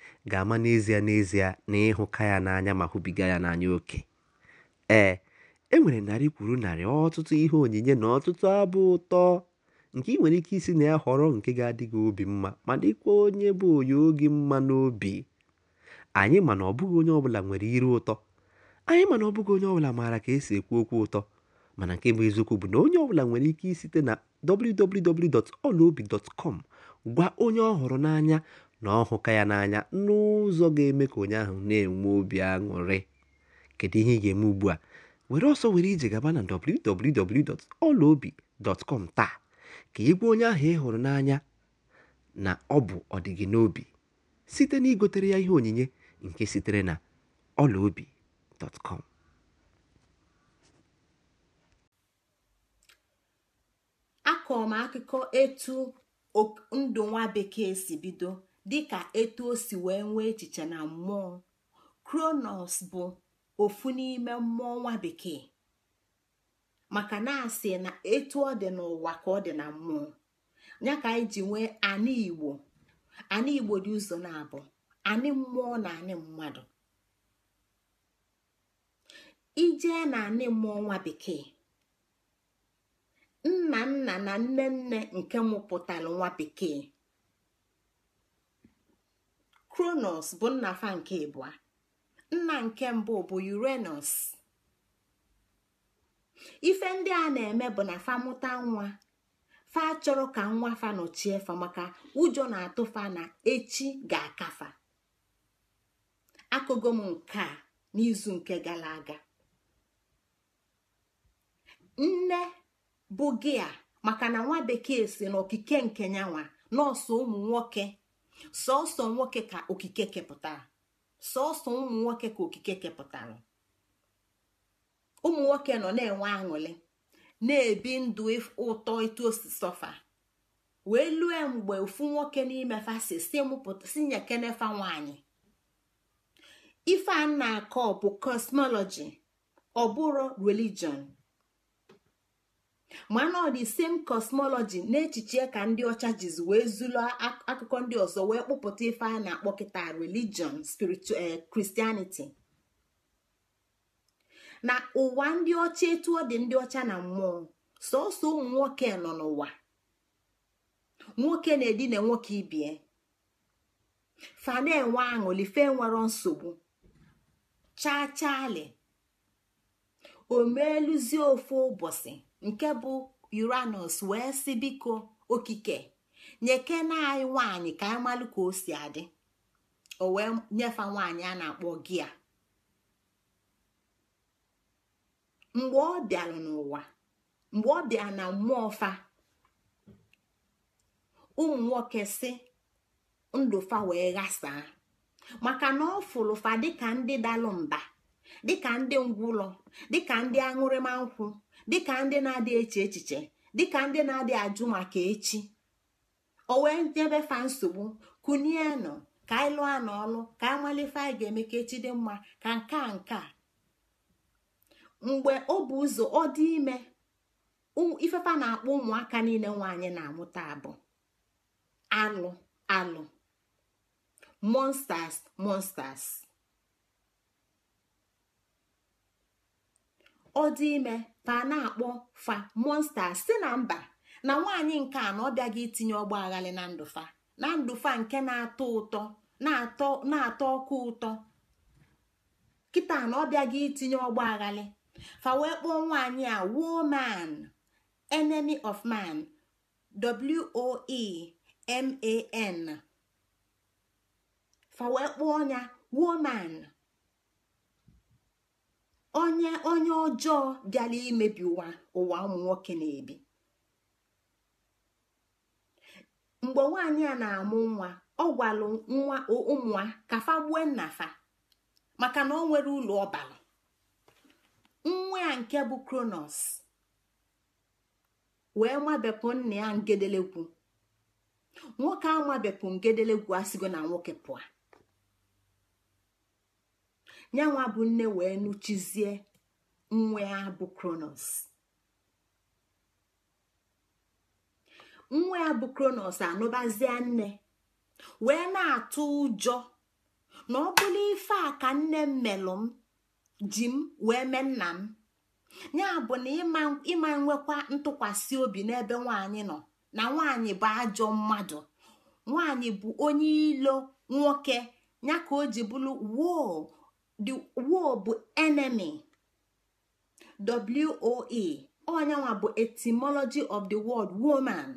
ga-ama n'ezie n'ezie na ịhụka ya n'anya ma hụbiga ya n'anya oke ee e nwere narị kwuru narị ọtụtụ ihe onyinye na ọtụtụ abụ ụtọ nke ị nwere ike isi na ya họrọ nke ga-adị gị obi mma ma dịkwa onye bụ onye oge mma n'obi anyị ma na ọ bụghị onye ọbụla nwere iru ụtọ anyị ma na ọ bụghị onye ọbụla maara ka esi ekwu okwu ụtọ mana nke bụ eziokwu bụ na onye ọbụla nwere ike site na www.olaobi.com gwa onye ọ họrọ n'anya na ọ hụka ya n'anya n'ụzọ ga-eme ka onye ahụ na-enwe obi aṅụrị kedu ihe ị ga-eme ugbu a were ọsọ were ije gaba na www.olaobi.com taa ka ị onye ahụ ị hụrụ n'anya na ọ bụ ọdịgị n'obi site na igotere ya ihe onyinye nke sitere na olaobi.com akọrọ m akụkọ etu ndụ nwa bekee si bido dịka etu o si wee nwee echiche na mmụọ kronos bụ ofu n'ime mmụọ nwa bekee maka na asị na etu ọ dị n'ụwa ka ọ dị na mmụọ ya ka anyị nwee anị igbo anị igbo dị ụzọ na-abụ anị mmụọ na anị mmadụ ijee na anị mmụọ nwa bekee nna nna na nne nne nke mụpụtara nwa bekee kronos bụ nna fa nke ịbụa nna nke mbụ bụ urenus ife ndị a na-eme bụ na fa mụta nwa fa chọrọ ka nwa fa nọchie fa maka ụjọ na-atụ fa na echi ga-akafa akụgo m nke a n'izu nke gara aga nne bụ gị a maka na nwa bekee si n'okike nke nyanwa nọọsụ ụmụ nwoke sọsọ nwoke ka okike kepụtara sọsọ ụmụ nwoke ka okike kepụtara ụmụ nwoke nọ na-enwe aṅụrị na-ebi ndụ ụtọ etu osisọfa wee lue mgbe ofu nwoke n'ime fasi si nyekenefa nwanyị ife a na-akọ bụ kosmọlọji ọ bụrụ religion mana ọ dị same cosmology echiche ka ndị ọcha jizi wee zụlọ akụkọ ndị ọzọ wee kpụpụta ife a na-akpọ kịta religion spiritual eh, christianity na ụwa ndị ọcha etu ọ dị ndị ọcha na mmụọ sọsọ ụmụ nwoke nọ n'ụwa nwoke na-edina nwoke ibie eh. fa na-enwe aṅụli fe nwere nsogbu chaa chaali o meeluzie ofu ụbọchị nke bụ uranus wee si biko okike na anyị nwaanyị ka anyị malụ ka o si adị o wee nyefe nwaanyị a na-akpọ gia mgbe ọ bịara n'ụwa mgbe ọ bịara na mmụọ fa ụmụ nwoke si ndụfa wee ghasaa maka na ọ fa dịka ndị dalụ mba dịka ndị ngwụlọ dịka ndị aṅụrịma nkwụ dịka ndị na-adị eche echiche dịka ndị na-adị ajụ maka echi o wee nyebe fa nsogbu kunie ka anyị lụọ ọlụ ka anyị malife anyị ga-eme ka echi dị mma ka nke a nke a mgbe ọ bụ ụzọ ọ dị ime ifefa na-akpọ ụmụaka niile nwaanyị na-amụta abụ alụ alụ monsters monsters ọ dị ime pa na-akpọ fa monsta si na mba na nwaanyị nke a na ọ bịaghị itinye ọgba aghalị na ndụfa na nke na-atọ ọkụ ụtọ kịta na ọ bịaghị itinye ọgba aghali fa wee kpọọ nwaanyị a woman enemy of man w e man fa wee kpọọ ya woman onye onye ọjọọ bịala imebi ụwa ụwa ụmụ nwoke na-ebi mgbe nwaanyị a na-amụ nwa ọ gwalụ nwa ụmụa kafa gbue fa maka na ọ nwere ụlọ ọbara nwa ya nke bụ kronos wee mabepụ nna ya ngedelegwu nwoke a mabepụ ngedelegwu sigo na nwoke pụa ya bụ nne wee nụchizie nwa ya bụ kronos nwa ya bụ kronos anụbazie nne wee na-atụ ụjọ na ọ bụla ife a ka nne m melụ m ji m wee mee nna m ya bụ na ịma nwekwa ntụkwasị obi n'ebe nwaanyị nọ na nwaanyị bụ ajọ mmadụ nwaanyị bụ onye ilo nwoke ya ka o ji bụrụ woo the war bụ enemy woe onyanwa bụ etymology of the word woman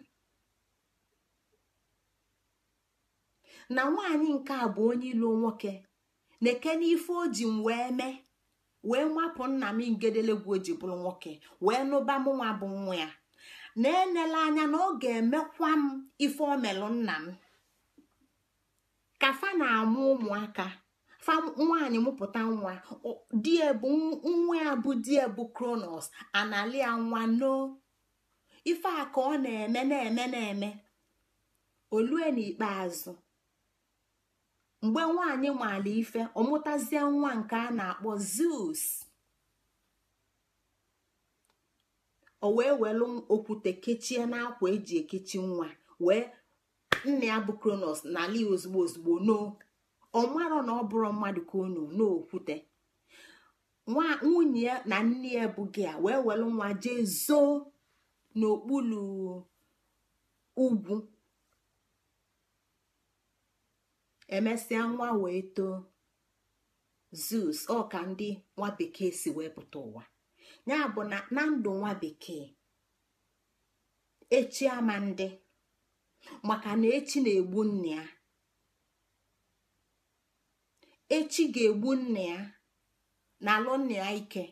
na nwaanyị nke a bụ onye ilu nwoke na-eke n'ife o ji m wee mee nna m ngedelegwu o ji nwoke wee nụba m nwa bụ nwa ya na enele anya na ọ ga-emekwa m ife omelụ nna m kafa na-amụ ụmụaka fa nwaanyị mụpụta nwa die nwa ya bụ die kronos analia nwa noo ife a ka ọ na-eme na-eme na-eme olue n'ikpeazụ mgbe nwaanyị maala ife ọmụtazie nwa nke a na-akpọ zeus o wee welu okwute kechie n'akwa eji ekechi nwa wee nna ya bụ kronos n'ala ozugbo ozugbo ọ marọ na ọ bụrụ mmadụ ka unu n'okwute nwunye ya na nne ya bụ gị a wee welu nwa jee zoo n'okpuru ugwu emesịa nwa wee too zeus ọ ka ndị nwa bekee si wee pụta ụwa ya bụ na ndụ nwa bekee echi ama ndị maka na echi na-egbu nne ya echi ga-egbu nna ya na alụ nna ya ike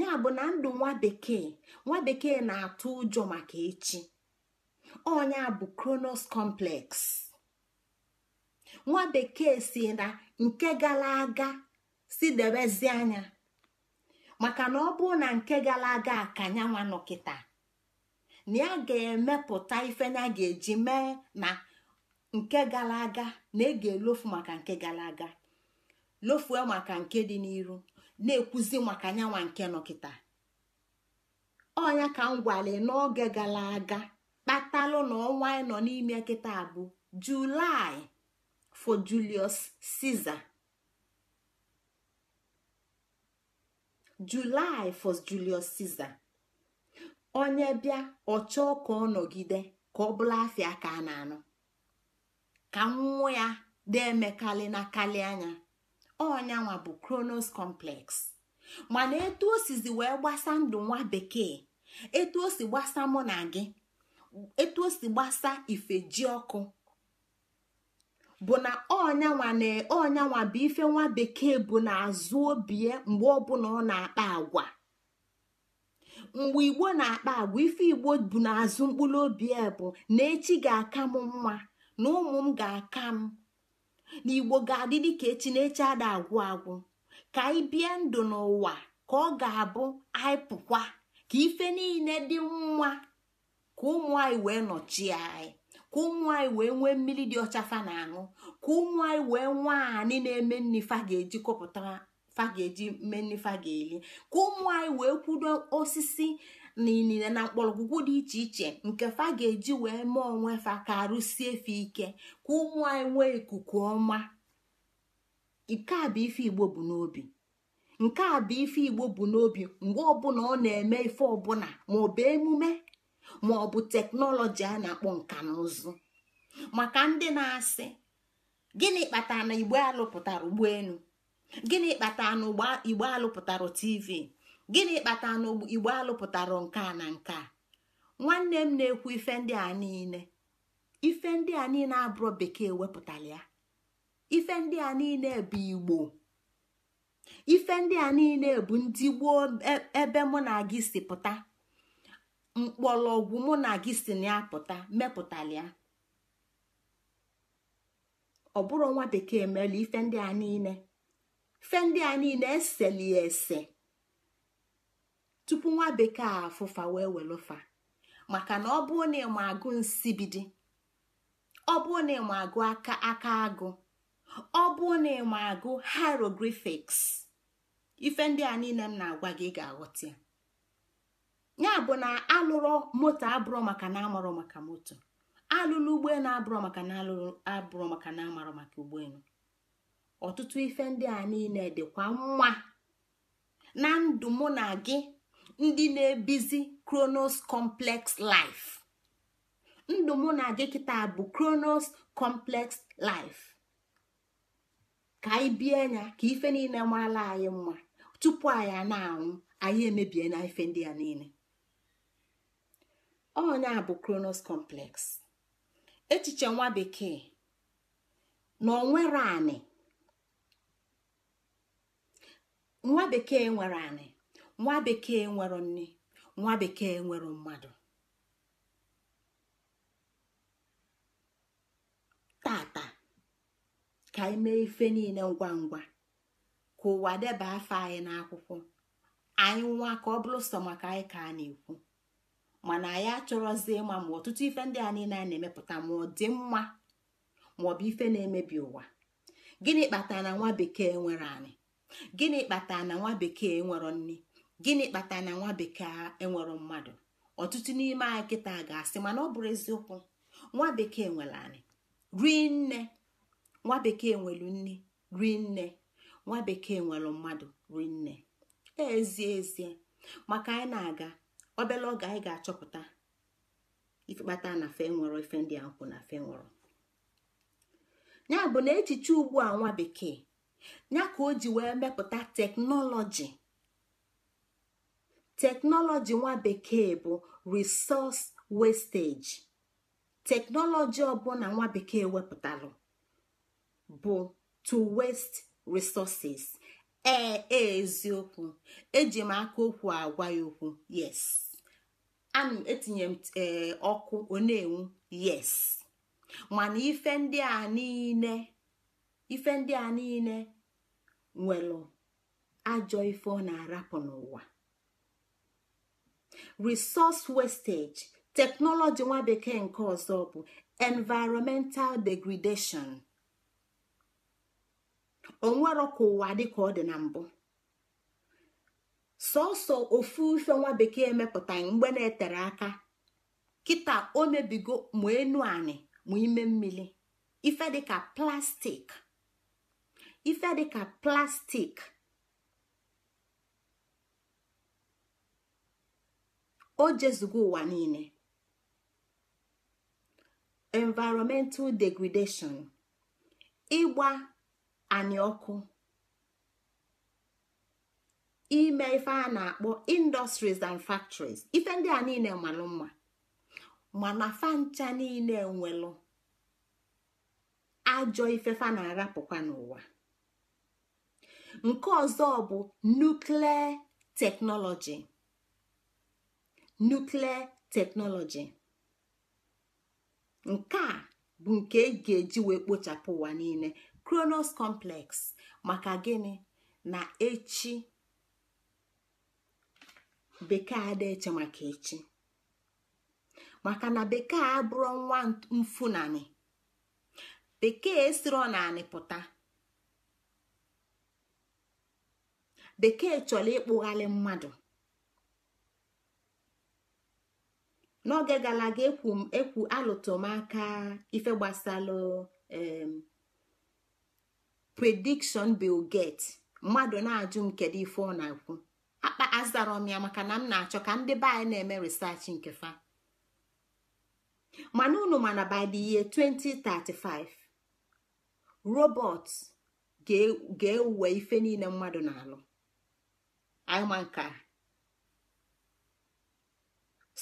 ya bụ na ndụ nwa bekee nwa bekee na-atụ ụjọ maka echi ọnya bụ kronos complex nwa bekee si na nke gara aga si debezi anya maka na ọ bụrụ na nke gara aga ka nyanwa nọ na ya ga-emepụta ife ya ga-eji mee na nke gara aga na ege lofu maka nke gara aga lofue maka nke dị n'iru na-ekwuzi maka nyanwa nke nọkịta ọnya ka m gwale n'oge gara aga kpatalụ na ọnwa anyị nọ n'ime kịta bụ julaị for julius caesar onye bịa ọ chọọ ka ọ nọgide ka ọ bụla afịa ka a na-anụ ka nwụọ ya deemekalị na kalị anya ọnyanwa bụ kronos complex mana etu o sizi wee gbasa ndụ nwa bekee etu o si gbasa mụ na gị etu o si gbasa ife ji ọkụ bụ na ọnyanwa na bụ ife nwa bekee bụ na azụ obie mgbe ọbụla ọ na-akpa agwa mgbe igbo na-akpa agwa ife igbo bụ na azụ mkpụrụ obi bụ na echi ga-aka m nwa na ụmụ m ga-aka m na igbo ga-adị ka echi na echi ada agwụ agwụ ka anyị bie ndụ n'ụwa ka ọ ga-abụ anyị pụkwa ka ife niile dị nwa ka ụmụ anyị wee nọchie anyị ka ụmụ anyị wee nwee mmiri dị ọcha fa na-aṅụ ka ụmụ anyị wee nwaanyị na-eme nni fa ga-eji kọpụta fa ga-eji mee nni fa ga-eli ka ụmụ anyị wee kwudo osisi na na mkpọrọgwụgwụ dị iche iche nke fa ga-eji wee mee onwe fa ka arụsie efe ike ka ụmụ anyị nwee ikuku ọma nke a bụ ife igbo bụ n'obi nke a bụ ife igbo bụ n'obi mgbe ọbụla ọ na-eme ife ọbụla maọbụ emume maọbụ teknọlọji a na-akpọ nka na ụzụ maka ndị na-asị gịnị kpatara na igbo alụpụtara ụgbọelu gịnị kpatara na igbo alụpụtara tv gịnị kpata na igbo alụpụtara nke a na nke a nwanne m na-ekwu ife ndị a niile ife ndị a niile abụrụ bekee wepụtara ya ife ndị a niile bụ igbo ife ndị a niile bụ ndị gboo e, ebe mụ na gị si pụta mkpọrọgwụ mụ na gị si na ya pụta mepụtara ya ọ bụrụ nwa bekee mere ife ndị a niile ife ndị a niile ya ese tupu nwa bekee a afụfa wee welụfa maka na ọ bụrụ na ịma agụ nsibidi ọ bụrụ na ịma agụ aka aka agụ ọ bụrụ na ịma agụ hieroglyphics ife ndị a niile m na-agwa gị ga-aghọta ya ya bụ na alụrụ moto abụrụ maka na amarụ maka moto alụlụ ụgbọelu abụrụ maka na alụrụ abụrụ maka na amarụ maka ụgbọelu ọtụtụ ife ndị a niile dịkwa mma na ndụ mụ na gị ndị na-ebizi kronos complex life ndụ mụ na gị kịta bụ kronos complex life ka anyị bie anya ka ife niile marala anyị mma tupu anyị na-anwụ anyị emebie na ife ndị a niile ọnya bụ kronos complex echiche nwa bekee na onwere anị nwa bekee nwere anị nwa bekee nwere nne nwa bekee nwere mmadụ tata ka anyị mee ife niile ngwa ngwa ka ụwa deba afọ anyị n'akwụkwọ anyị nwa ka ọ bụrụ sọ maka anyị ka a na-ekwu mana anyị achọrọzi ịma ma ọtụtụ ife ndị a niile a na-emepụta ma ọ dị mma ma ọ bụ ife na-emebi ụwa gịnị kpatara na nwa bekee nwere anyị gịnị kpatara na nwa bekee nwere nne gịnị kpatara na nwa bekee enwero mmadụ ọtụtụ n'ime anyị kịta ga-asị mana ọ bụrụ eziokwu nwa bekee nwere anyị rie nne nwa bekee nwere nne rie nne nwa bekee nwere mmadụ rie nne ezie ezie maka anyị na-aga obere oge anyị ga-achọpụta ikpata na fe nwere ife ndị a na fe nwere ya bụ na echiche ugbu a nwa bekee ya ka o ji wee mepụta teknọlọji teknọlọji nwa bekee bụ resọs westeji teknọlọji ọbụla nwa bekee wepụtalụ bụ to west resources ee e, eziokwu eji m aka okwu agwa ya okwu yes anụ etinye m ee ọkụ onenwu yes mana ife ndị a niile ife ndị a niile nwere ajọ ife ọ na-arapụ n'ụwa resource wastage teknọlọji nwa bekee nke ọzọ bụ environmental degradation onwero ka ụwa ka ọ dị na mbụ sọsọ ofu ife nwa bekee mepụta mgbe na-etere aka kita o mebigo ma enu anị ma ime mmiri ife ife dịka plastik o jezugo ụwa niile environmental degradation ịgba anyị ọkụ ime ife a na-akpọ industries and factories ife ndị a niile malụ mma mana fancha niile nwere ajọ fa na-arapụkwa n'ụwa nke ọzọ bụ nuklia teknọlọji nuklia teknọlọji nke a bụ nke e ga-eji wee kpochapụ ụwa niile kronos complex maka gịnị na echi bekee ada eche maka echi maka na bekee abụrụ nwa mfunani bekee siro na pụta bekee chọrọ ịkpụghalị mmadụ n'oge gara aga ekwu alụtụmaka ife gbasalụ prediction Bill get mmadụ na-ajụ m kedu ife ọ na akwụ akpa azara m ya maka na m na-achọ ka ndị be na-eme research nke fa mana unu mana by the year 2035 robot ga-ewe ife niile mmadụ na-alụ anyị ma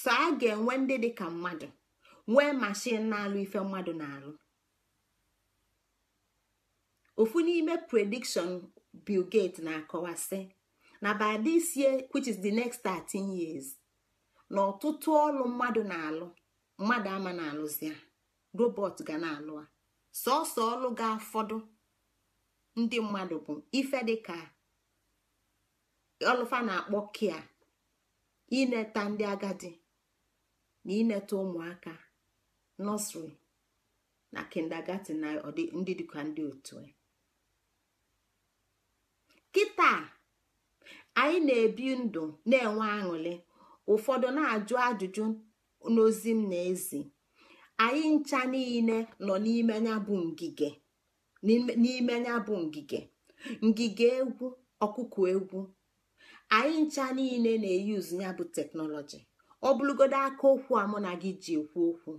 so a ga-enwe ndị dị ka mmadụ nwee mashin na-alụ ife mmadụ na-alụ ofu n'ime predikshọn bilgate na-akọwasị na by this year which is the next 13 years na ọtụtụ ọlụ mmadụ na-alụ mmadụ ama na alụ zia robot ga na-alụ a sọsọ ọlụ ga-afọdụ ndị mmadụ bụ ife dịka ọlụfa na-akpọ kia ineta ndị agadi na ịnata ụmụaka nọsịrị na kindergarten na ndị dịka ndị otu e. kịta anyị na-ebi ndụ na-enwe aṅụrị ụfọdụ na-ajụ ajụjụ n'ozi m na-ezi anyị ncha niile nọ n'ime ya bụ ngige ngige egwu ọkụkụ egwu anyị ncha niile na-eyuzu ya bụ teknọlọji ọ bụrụgodo aka okwu a na gị ji ekwu okwu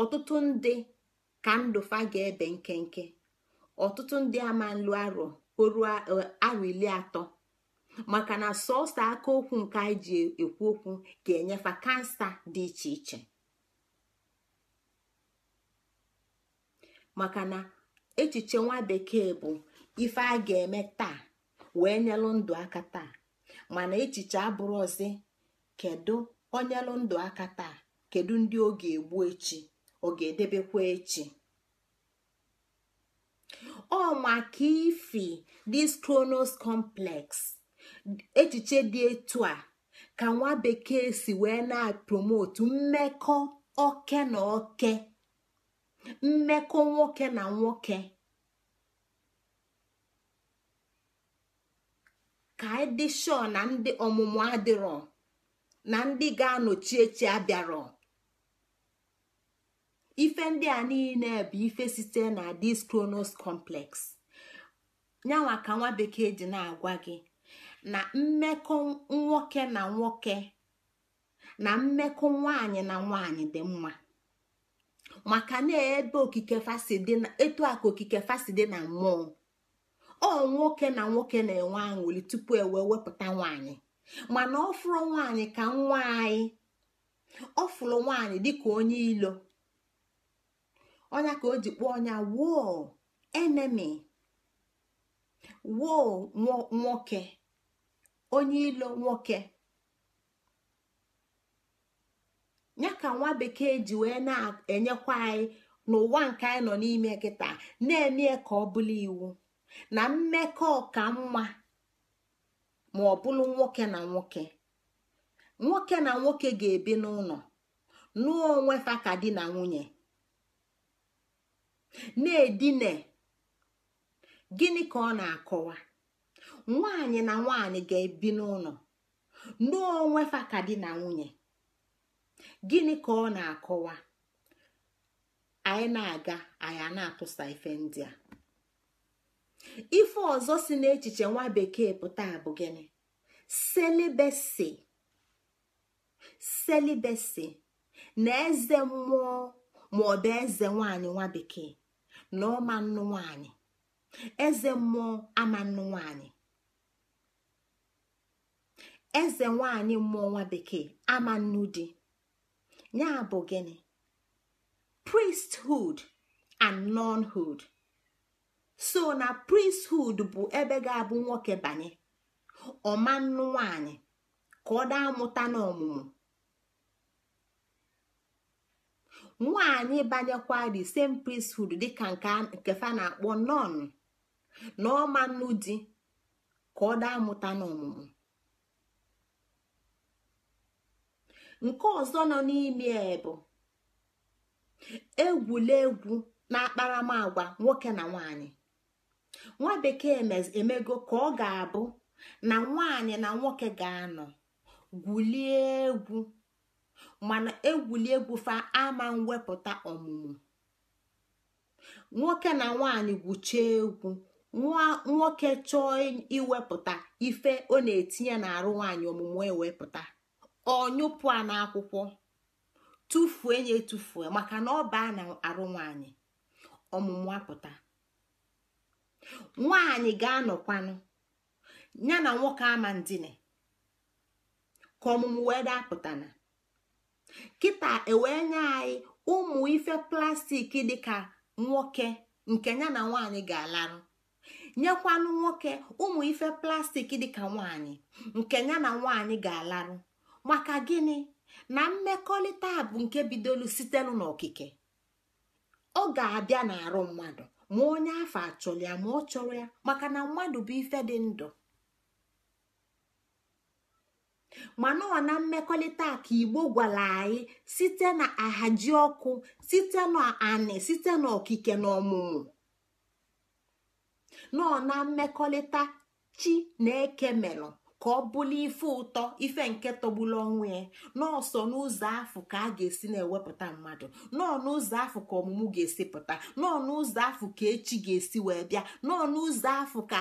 ọtụtụ ndị ka ndụfa ga-ebe nkenke ọtụtụ ndị ama nlu arọ oruo e, arọ ili atọ maka na sọsọ aka okwu nke anyị ji ekwu okwu ga-enyefa kansa dị iche iche maka na echiche nwa bekee bụ ife a ga-eme taa wee nyelụ ndụ aka taa mana echiche abụrụ ọzi kedu onyelụ ndụ aka taa kedu ndị ọ ga-egbu echi ọ ga-edebekwa echi ọ maka ifi dis kronos complex echiche dị etu a ka nwa bekee si wee na-promotu mmekọ oke na oke mmekọ nwoke na nwoke ka ịdị shọ na ndị ọmụmụ adịrọ na ndị ga-anọchi echi abịarọ ife ndị a niile bụ ife site na dis kronos complex nyanwa ka nwa bekee ji na-agwa gị na mmekọ nwoke na nwoke na mmekọ nwanyị na nwanyị dị mma maka na ebe okike fasi na aka okike na mmụọ ọ nwoke na nwoke na-enwe aṅụli tupu ewe wepụta nwanyị mana ọ fụrụ nwanyị ka nwa anyị fụrụ nwanyị dịka onye ilo ọnya ka o ji kpọọ ọnya woo enemi woo nwoke onye ilo nwoke ya ka nwa bekee ji wee na-enyekwa anyị n'ụwa nke anyị nọ n'ime kịta na-eme ka ọ bụla iwu na mmekọ ọka mma ma ọ bụrụ nwoke na nwoke nwoke na nwoke ga-ebi n'ụlọ nụọ onwe fa ka di na nwunye na-edina gịnị ka ọ na-akọwa nwanyị na nwanyị ga-ebi n'ụlọ nụọ onwe fa ka di na nwunye gịnị ka ọ na-akọwa anyị na-aga anyị na-atụsa ife ndị a ife ọzọ si n'echiche nwa bekee pụta bụ gịnị selibesi selibesi na eze mmụọ ma ọ bụ eze nwanyị nwa bekee na ọma nwanyị eze mmụọ ama nnụ nwanyị eze nwanyị mmụọ nwa bekee ama nnụ di ya bụ gịnị priesthood and nonhood. so na prinshood bụ ebe ga-abụ nwoke banye ọmanụ nwanyị ka ọ daa mụta n'ọmụmụ nwanyị banyekwa the same priesthood dịka nke fa na-akpọ non na ọmanụ di ka ọ daa mụta n'ọmụmụ nke ọzọ nọ n'ime e bụ egwulegwu na akparamagwa nwoke na nwanyị nwa bekee emego ka ọ ga-abụ na nwaanyị na nwoke ga-anọ gwulie egwu mana egwuli egwu fa ama mwepụta ọmụmụ nwoke na nwaanyị gwuchie egwu nwoke chọọ iwepụta ife ọ na-etinye n'arụ nwaanyị ọmụmụ ewepụta nyụpụ a n'akwụkwọ tufuo ya tufuo maka na ọ baa na arụ nwaanyị ọmụmụ apụta nwaanyị ga-anọkwanụ ya na nwoke ama ndine ka ọmụmụ wee dapụtana kịta ewee nye anyị ụmụ ife plastik dịka nwoke nke ya na nwaanyị ga-alarụ nyekwanụ nwoke ụmụ ife plastik dịka nwaanyị nke ya na nwaanyị ga-alarụ maka gịnị na mmekọrịta bụ nke bidolu sitelu n'okike ọ ga-abịa n'arụ mmadụ ma onye afọ achọrọ ya ma ọ chọrọ ya maka na mmadụ bụ ife dị ndụ Ma ọ na mmekọrịta ka igbo gwara anyị site na ahaji ọkụ site na site na okike na ọmụmụ nọọ na mmekọrịta chi na eke melụ ka ọ bụla ife ụtọ ife nke tọgbulu onwe ya n'ọsọ n'ụzọ afọ ka a ga-esi na-ewepụta mmadụ nọọ n'ụzọ afọ ka ọmụmụ ga-esi pụta nọọ n'ụzọ afọ ka echi ga-esi wee bịa nọọ n'ụzọ afọ ka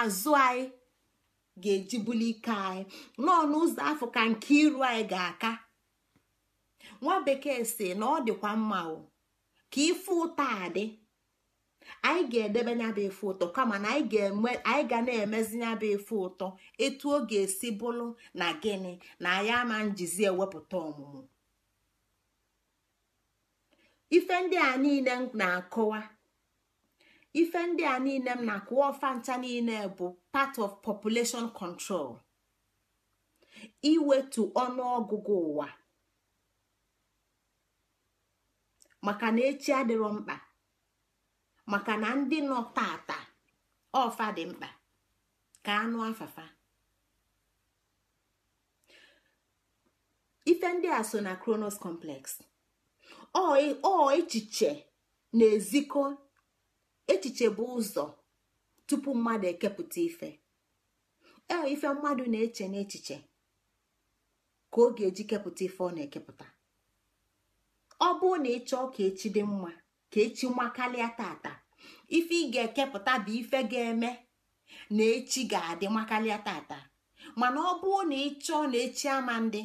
azụ anyị ga-eji ike anyị nọ n'ụzọ afọ ka nke iru anyị ga-aka nwa bekee si na ọ dịkwa mma ka ife ụtọ adị anyị ga-edebe nya bụ ụtọ kama na anyị ga na-emezi nya bụ ụtọ etu ọ ga-esi bụrụ na gịnị na anyị ama njizi ewepụta ọmụmụ ife ndị a niile m na-akọwa ife ndị a niile m na-akọwa ọfa ncha niile bụ part of population control iwetu ọnụọgụgụ ụwa maka na echi adịrọ mkpa maka na ndị nọ tata ọfa dị mkpa ka anụ afafa ife ndị a so na kronos complex ọ echiche na-ezikọ echiche bụ ụzọ tupu mmadụ ekepụta ife ee ife mmadụ na-eche n'echiche ka ọ ga-eji kepụta ife ọ na-ekepụta ọ bụrụ na eche ọka echi dị mma ka echi makalịa tata ife ị ga-ekepụta bụ ife ga-eme na echi ga-adị makalịa tata mana ọ bụrụ na ị chọọ na echi ama ndị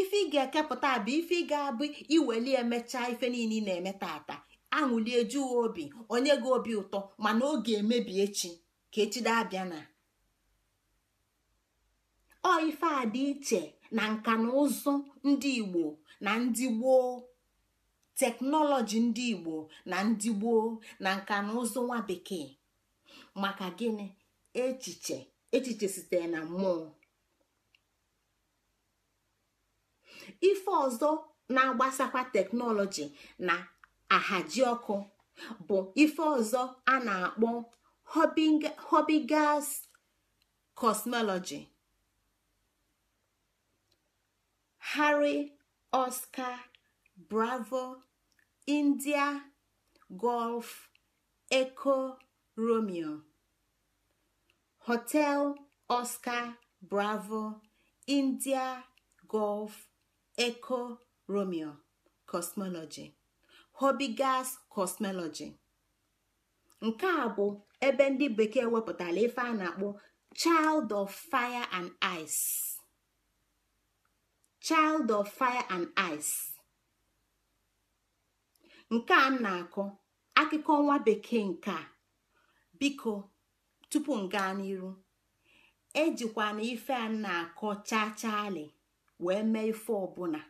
ife ị ga-ekepụta bụ ife ị ga-abụ iweli emechaa ife niile na-eme tata aṅụlie juwe obi onye gị obi ụtọ mana ọ ga-emebi echi ka echi dabịa na ọ ife a dị iche na nka na ụzụ ndị Igbo na ndị gboo teknọlọji ndị igbo na ndị gboo na nka na ụzụ nwa bekee maka gịnị echiche echiche sitere na mmụọ ife ọzọ na-agbasakwa teknọlọji na ahaji ọkụ bụ ife ọzọ a na-akpọ hobbygas kọsnọlọji Harry Oscar bravo india golf eco romeo hotel oscar bravo india golf eco romeo cosmology gas cosmology nke a bụ ebe ndị bekee wepụtara ife a na-akpọ child of fire and child of fire and ice nke a na-akọ akụkọ nwa bekee nke a biko tupu m gaa n'iru ejikwa na ife a na-akọ chaa wee mee ife ọbụla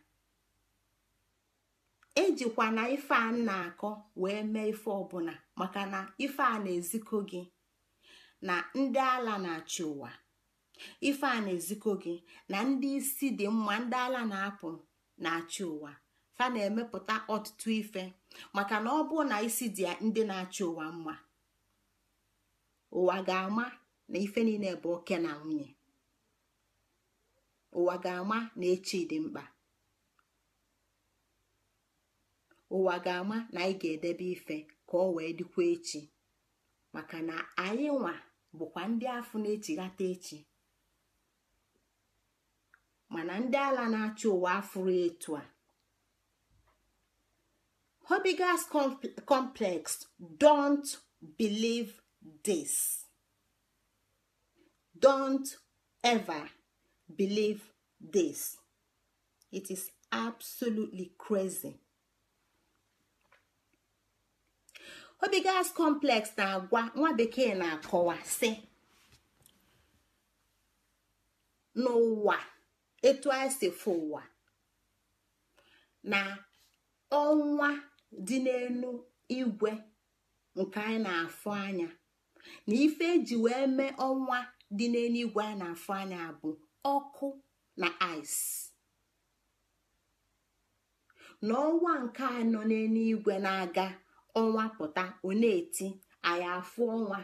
ejikwa na ife a na-akọ wee mee ife ọbụla maka na ife a na-ezikọ gị na ndị ala na-achị ụwa ife a na-ezikọ gị na ndị isi dị mma ndị ala na-apụ na-achị ụwa fa na-emepụta ọtụtụ ife maka na ọ bụ na isi dị ndị na-achị ụwa mma ụwa ga-ama na ife niile bụ oke na nwunye ụwa ga-ama na echi dị mkpa ụwa ga-ama na anyị ga-edebe ife ka ọ wee dịkwa echi maka na anyị nwa bụkwa ndị ahụ na-echighata echi mana ndị ala na-achị ụwa afụrụ etu a Hobigas complex, don't believe this. Don't ever believe this. It is absolutely crazy. Hobigas complex na-agwa nwa bekee na-akọwa si n'ụwa etu anyị si fụ ụwa na ọnwa dị n'elu igwe nke anyị na-afụ anya na ife eji wee mee ọnwa dị n'elu igwe anyị na-afụ anya bụ ọkụ na ice na ọnwa nke a nọ n'elu igwe na-aga ọnwa pụta ọ eti anyị afụ ọnwa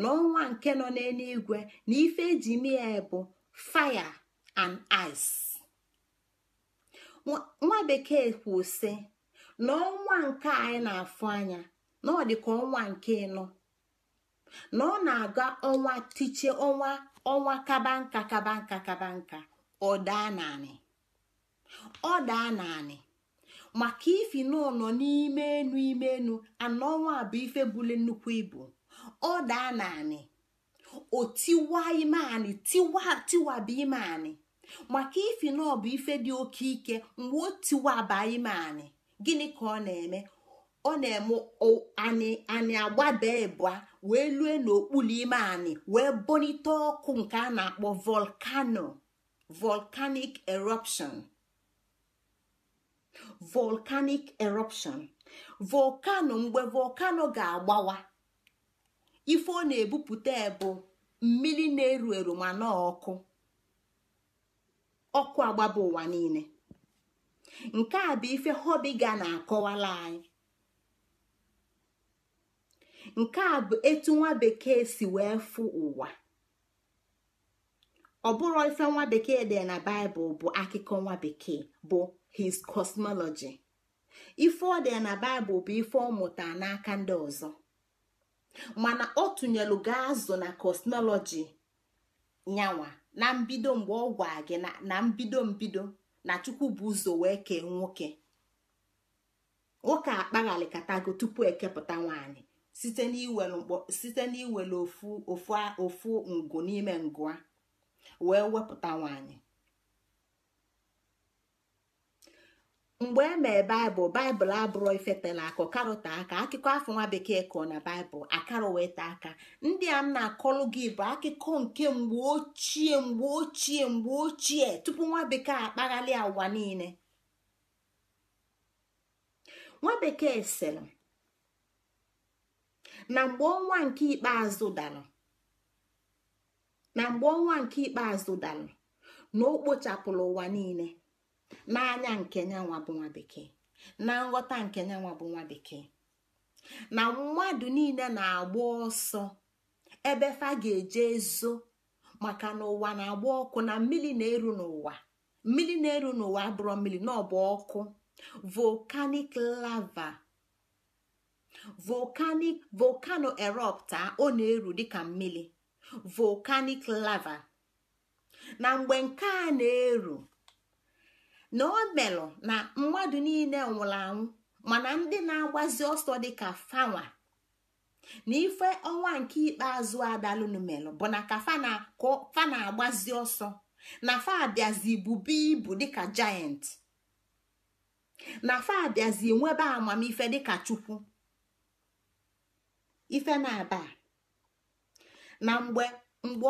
na ọnwa nke nọ n'elu igwe na ife eji mee bụ fire and ice nwa bekee kwụ na ọnwa nke anyị na-afụ anya na ọ dị ka ọnwa nke ịnọ na ọ na-aga ọnwa tiche ọnwa ọnwa kaba nka kaba nka kaba nka ọ daa naanị ọ daa naanị maka ifi na nọ n'ime enu ime enu anọ ọnwa bụ ife bule nnukwu ibu ọ daa naanị o tiwa ime anị tiwa tiwaba ime anị maka ifi na ọ bụ ife dị oke ike mgbe o tiwaba ime anị gịnị ka ọ na-eme ọ na-eme anyị agbada agbabe ịbụa wee lue n'okpuru ime anyị wee bonite ọkụ nke a na-akpọ volcano volcanic eruption volcanic eruption volcano mgbe volcano ga-agbawa ife ọ na-ebupụta bụ mmiri na-eru eru ma na ọkụ ọkụ agbaba ụwa niile nke a bụ ife hobiga na-akọwala anyị nke a bụ etu nwa bekee si wee fụ ụwa ọ bụrụ ife nwa bekee dị na baịbụl bụ akụkọ nwa bekee bụ his cosmology ife ọ dị na baịbụl bụ ife ọ mụta n'aka ndị ọzọ mana ọ tụnyelu ga azụ na cosmology nyanwa na mbido mgbe ọ gwa gị na mbido mbido na chukwu bụ ụzọ wee kee nwoke nwoke katago tupu ekepụta nwaanyị site n'iwere ofu ofu ngụ n'ime ngụa wee wepụta nwaanyị mgbe emee baịbụl baịbụl abụrụ ifetela akọ karọta aka akụkọ afọ nwa bekee kọọ na baịbụl akara aka ndị a m na-akọlụ gị bụ akụkọ nke mgbe ochie mgbe ochie mgbe ochie tupu nwa bekee akpaghalị ụwa niile nwa bekee sịrị na mgbe ọnwa nke ikpeazụ dara na mgbe ọnwa nke ikpeazụ dara na kpochapụrụ ụwa niile n'anya nke nyanwa bụ nwa na nghọta nke nyanwa bụ nwa bekee na mmadụ niile na-agba ọsọ ebe fa ga-eje ezo maka na ụwa na-agba ọkụ na mmiri na-eru n'ụwa mmiri na-eru n'ụwa abụrọ mmiri na ọkụ volcanic lava volcanic volcano erupta ọ na-eru dịka mmiri volcanic lava na mgbe nke a na-eru na ọ melụ na mmadụ niile nwụrụ anwụ mana ndị na-agbazi ọsọ dịka fanwa na ife ọnwa nke ikpeazụ adalụnumelụ bụ na ka fa na-agbazi ọsọ na fa abịazị bube ibu dịka giant na fa abịazị nwebe amamife dịka chukwu ife na-aba na mgbe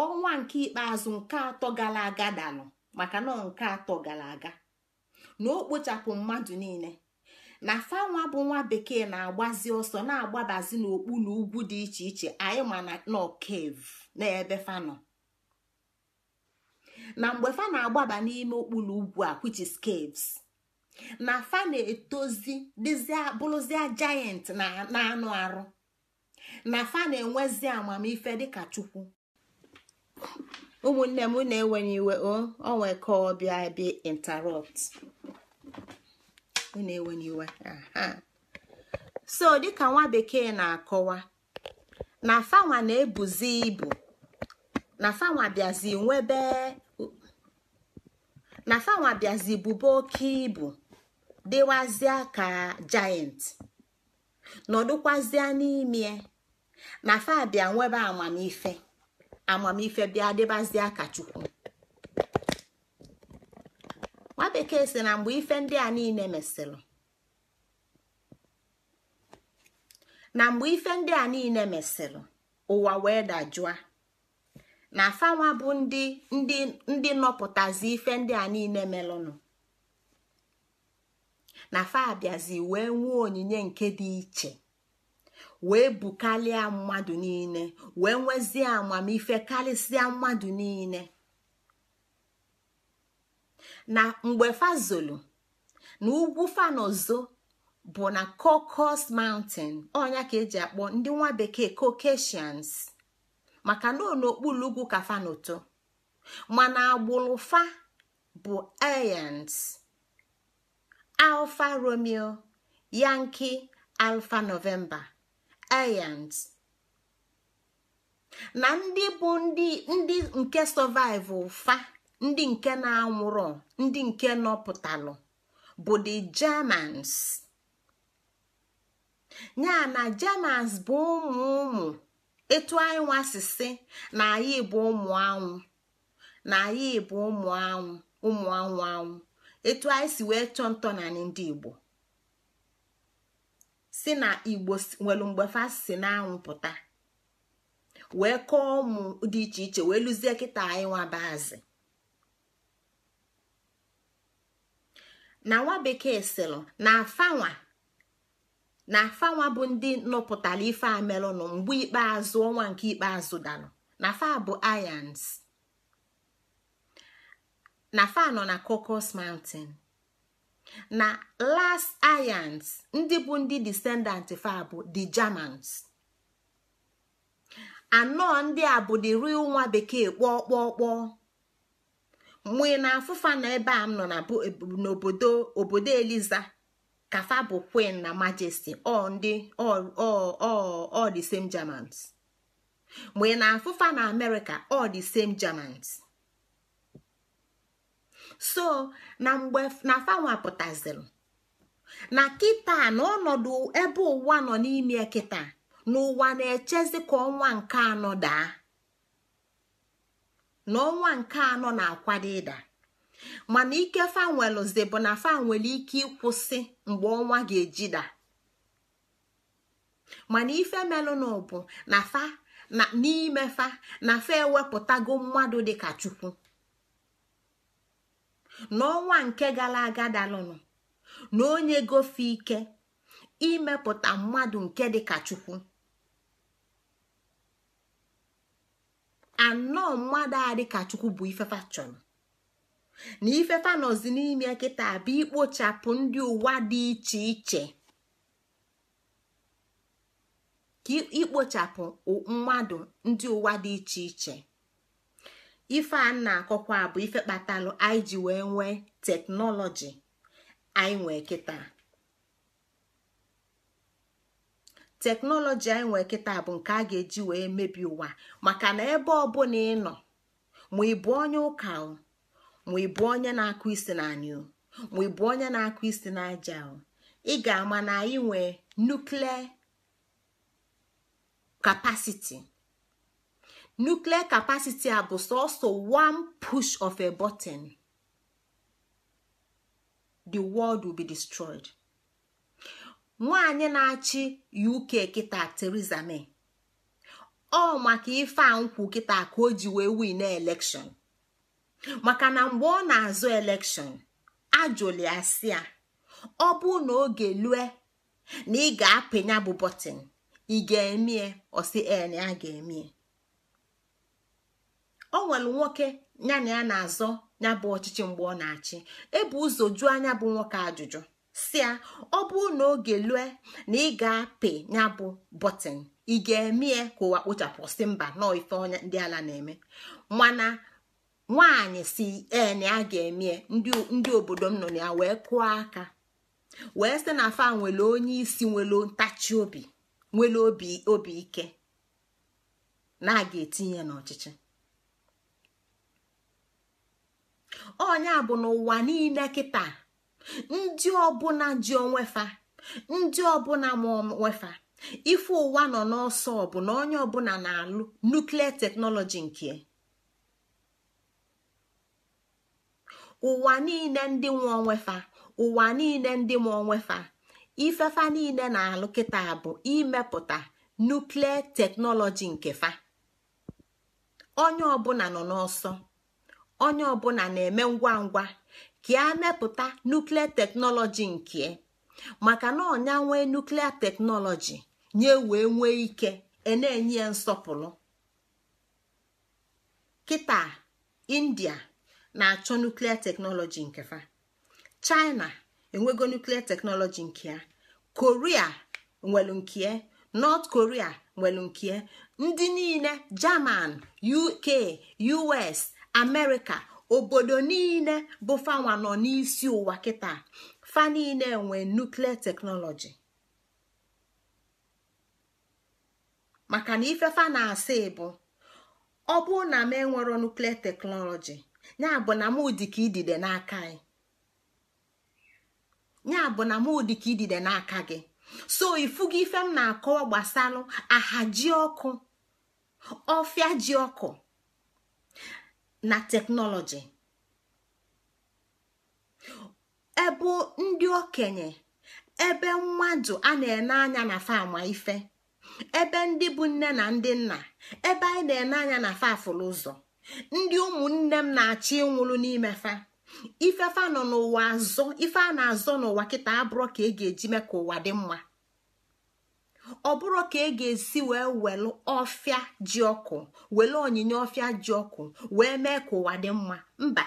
ọnwa nke ikpeazụ nke atọ gara aga dalụ maka na nke atọ gara aga na o kpochapụ mmadụ niile na fa nwa bụ nwa bekee na-agbazi ọsọ na-agbabazi n'okpu ugwu dị iche iche anyị ma na kev n'ebe ebe nọ na mgbe fa na-agbaba n'ime okpu ugwu a which is caves na fa na-etozi bụrụzie jayent na anụ arụ na fa na-enwezi amamife dịka chukwu ụmụnne m na-ewenye iwe o nwee ka ọbịa bi interrupt na-ewenye iwe so dịka nwa bekee na-akọwa na fanwa na-ebuzi ibu na fanwa bịazi nwebe na fanwa bịazi bube oke ibu dịwazịa ka giant nọdụkwazịa n'ime na fa bịa nwebe amamife amamife bịa dịbazie akachukwu: nwa si na mgbe ife ndị a niile mesịrị na mgbe ife ndị a niile mesịrị ụwa wee dajụa na afanwa bụ ndị ndị ife ndị a niile melụnụ na fa abịazi wee nwee onyinye nke dị iche wee bukalịa mmadụ niile wee nwezie amamife karịsịa mmadụ niile na mgbe fazolu na ugwu fanozo bụ na cocos mountain ọnya ka eji akpọ ndị nwa bekee caucasians maka na n'okpuru ugwu ka fanoto mana agbụrụ fa bụ alfa romeo yanki alfa novemba aryans na ndị bụ ndị ndị nke sọvaịvụ fa ndị nke na anwụrụ ndị nke nọpụtalụ bụ the germans ya na germans bụ ụmụ ụmụ etu anyị nwasịsị na anyị bụ ụmụ anwụ na anyị bụ ụmụ anwụ ụmụ anwụ anwụ etu anyị si wee chọọ ntọ na ndị igbo si na igbo nwelu mgbe fa si n'anwụ pụta wee kọọ ụmụ dị iche iche wee lụzie kịta anyị bazi na nwa bekee sịlụ na afanwa na afanwa bụ ndị nọpụtara ife amelụnụ mgbe ikpeazụ ọnwa nke ikpeazụ danụ na fa bụ ayans na fa nọ na Cocos Mountain. na last ayans ndị bụ ndị descendant fa bụ the germans anọ ndị a bụ the real nwa bekee kpọọ kpọọ kpọọ mgbe na afụfa na ebe a m nọ n'obodo obodo eliza kafa bụ queen na majesty ọ ọ the same germans mgbe na afụfa na america ọ the same germans so na mgbe na fanwa pụtaziri na kịta na ọnọdụ ebe ụwa nọ n'ime kịta n'ụwa na-echezi ka ọnwa nke anọ daa na ọnwa nke anọ na-akwado ịda mana ike bụ na fa nwere ike ịkwụsị mgbe ọnwa ga-ejida mana ife melụnụ bụ na fa n'ime fa na fa ewepụtago mmadụ dịka chukwu n'ọnwa nke gara aga dalụnụ na onye gofe ike imepụta mmadụ nke dịka chukwu anọ mmadụ a dịka chukwu bụ ifefa chọrọ na ifefa nọzi n'ime kịta bụ ikpochapụ mmadụ ndị ụwa dị iche iche ife a na-akọkwa bụ ife kpatalụ anyị ji wee nwee teknọlọji anyị nwee kịta teknọlọji anyị nwee kịta bụ nke a ga-eji wee mebi ụwa maka na ebe ọbụla ị nọ ma ị bụ onye ụka ma ị bụ onye na-akụ isi na anị ma ị bụ onye na-akụ isi na aja ị ga-ama na anyị nwee nuklia kapasiti nuclear capacity a bụ sọsọ one push of a button the world will be destroyed nwanyị na-achị uk kịta theresa may ọ maka ife a nkwụ kịta ka o ji wee win election maka na mgbe ọ na-azụ election ajụli asị a ọ bụ na oge lue na ị ga-apịnya bụ bọtịn ị ga-emie ọsị en a ga-emie o nwere nwoke ya na ya na-azọ ya bụ ọchịchị mgbe ọ na-achị ebu ụzọ jụọ anya bụ nwoke ajụjụ si ya ọ bụrụ na oge lue na ị ga-apị ya bụ bọtịn ị ga-eme ya ka ụwa kpochapụ si mba nọọ ife ọnya ndị ala na-eme mana nwaanyị si ee na ga-eme ndị obodo m nọ na ya wee kụọ aka wee sị na afa nwere onye isi nwere ntachi obi nwere obi ike na a ga-etinye n'ọchịchị a bụ n'ụwa niile kịta ndị ọbụla ji onwefa ndị ọbụla ma onwefa ife ụwa nọ n'ọsọ bụ na onye ọbụla na-alụ nuklia teknọlọji nke ụwa niile ndị nwa onwefa ụwa niile ndị ma onwefa ifefa niile na-alụ kịta bụ imepụta nuklia teknọlọji nke fa onye ọbụla nọ n'ọsọ onye ọbụla na-eme ngwa ngwa ka a e mepụta nuklia teknọlọji nke e. maka na ọnya nwee nuklia teknọlọji nye wee nwee ike e na-enye ya nsọpụrụ kịta india na-achọ nuklia teknọlọji nke fa china enwego nuklia teknọlọji nke ya korea nwelu nke nọt korea nwelu nke ndị niile german uk us amerịka obodo niile bụ fanwa nọ n'isi ụwa kịta fa niile nwee nuklia teknọlọji maka na ife na-asị bụ ọ bụrụ na m enwero nuklia teknọlọji ya abụ na m ka idide n'aka anyị bụ na ka idide n'aka gị so ifugo ife m na-akọwa gbasalụ ji ọkụ ọfịa ji ọkụ na teknọlọji ebu ndị okenye ebe mmadụ a na-ene anya na fama ife ebe ndị bụ nne na ndị nna ebe anyị na-ene anya na fafụlụ ụzọ ndị ụmụnne m na-achọ ịnwụrụ n'ime fa nọ n'ụwa azọ ife a na-azọ n'ụwa kịta abụrọ ka e ga-eji mee ka ụwa dị mma ọ bụrụ ka ị e ga-esi wee welu ọfịa ji ọkụ onyinye ọfịa ji ọkụ wee mee ka ụwa dị mma mba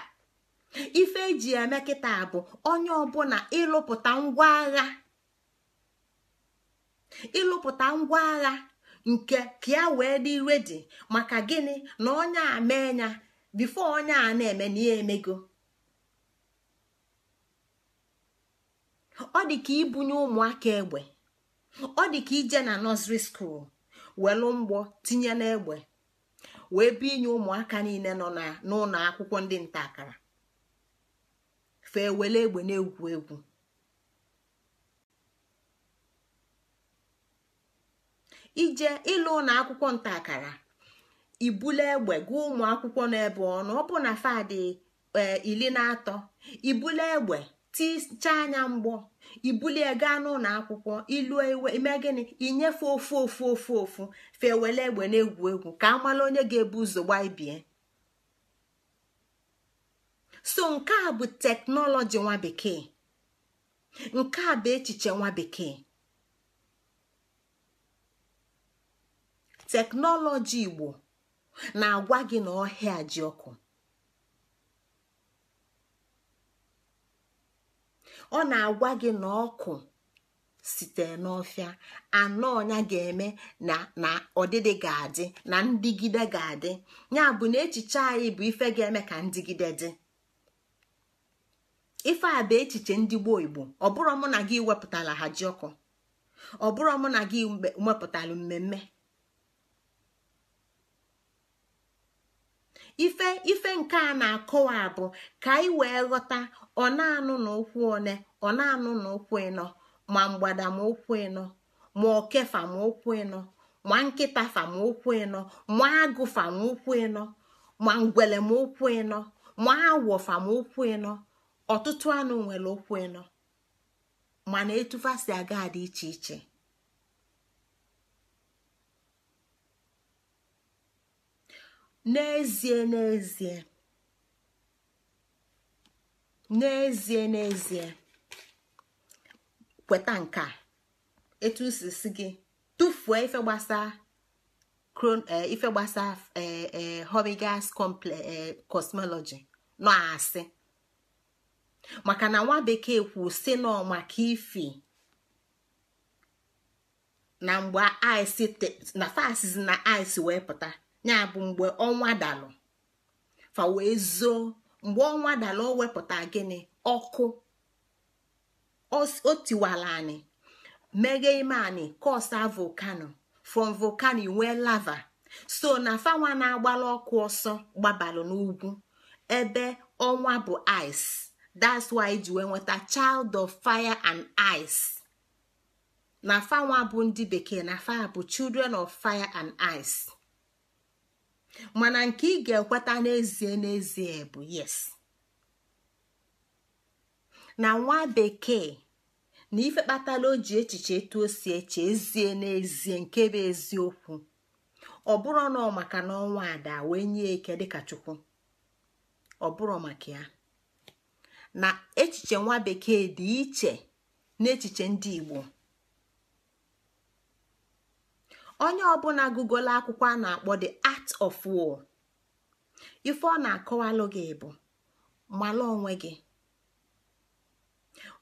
ife eji eme kịta bụ onye ọbụla ịlụpụta ngwa agha ịlụpụta ngwa agha nke ka ya wee dị redi maka gịnị na onye a mee ya bifo onye a na-eme na ihe emego ọ dị ka ibunye ụmụaka egbe ọ dị ka ije na nọsri skuul welu mgbọ tinye n'egbe wee bụ inye ụmụaka niile nọ n'ụlọ akwụkwọ ndị nta akara fee wele egbe na-egwu egwu ije ịlụ ụlọ akwụkwọ nta akara ibule egbe gụọ ụmụ akwụkwọ ọnụ ọnụ na ọ bụ na fadị eh, iri na atọ ibule egbe tichaa anya mgbọ ibulie gaa n'ụlọ akwụkwọ ilu iwe ime gịnị inyefe ofu ofu ofu ofu fewele egbe na-egwu egwu ka amala onye ga-ebu ụzọ ibie. so nke a bụ teknọlọji nwa bekee nke a bụ echiche nwa bekee teknọlọji igbo na-agwa gị na ọhịa ji ọkụ ọ na-agwa gị na ọkụ site n'ọfịa anọ ọnya ga-eme na ọdịdị ga-adị na ndigide ga-adị ya bụ na echiche anyị bụ ife ga-eme ka ndịgide dị ife a bụ echiche ndị gboo igbo ọ bụrụ mụ na gị wepụtala ha ọkụ, ọ bụrụ mụ na gị wepụtala mmemme ife ife nke a na-akọwa bụ, ka anyị wee ghọta ọ na-anụ na okwu one ọ na-anụ na okwu ịnọ ma mgbada ma okwu ịnọ ma okefa ma okwu ịnọ ma nkịta fa ma okwu ịnọ ma agụ fa ma okwu ịnọ ma ngwele ma okwu ịnọ ma awọ fa ma okwu ịnọ ọtụtụ anụ nwere okwu ịnọ mana etufasi aga dị iche iche n'ezie n'ezie n'ezie n'ezie kweta nke etu si gị tụfuo ife gbasaa eh, ife gbasaa eh, eh, hobigas cosmology nọ asị maka na nwa bekee kwu si nọ maka ifi na mgbe ice na fasiz na ice wee pụta ya bụ mgbe ọnwa dalụ fa wee zoo mgbe ọnwa dalụ o wepụta gịnị ọkụ o tiwala anyị meghe ime anyị kosa volkano from volcano nwee lava so na fanwa na-agbala ọkụ ọsọ gbabalụ n'ugwu ebe ọnwa bụ ice that's why e ji wee nweta child of fire and ice na fanwa bụ ndị bekee na fa bụ children of fire and ice mana nke ị ga-ekweta n'ezie n'ezie bụ yes na nwa bekee na ife kpatala o ji echiche etu o si eche ezie n'ezie nke bụ eziokwu ọ bụrụ na ọ maka na ọnwa ada wee nye eke dịka chukwu ọ maka ya na echiche nwa bekee dị iche n'echiche ndị igbo onye ọbụla gugola akwụkwọ a na-akpọ the art of war ife ọ na-akọwalụ gị bụ mala onwe gị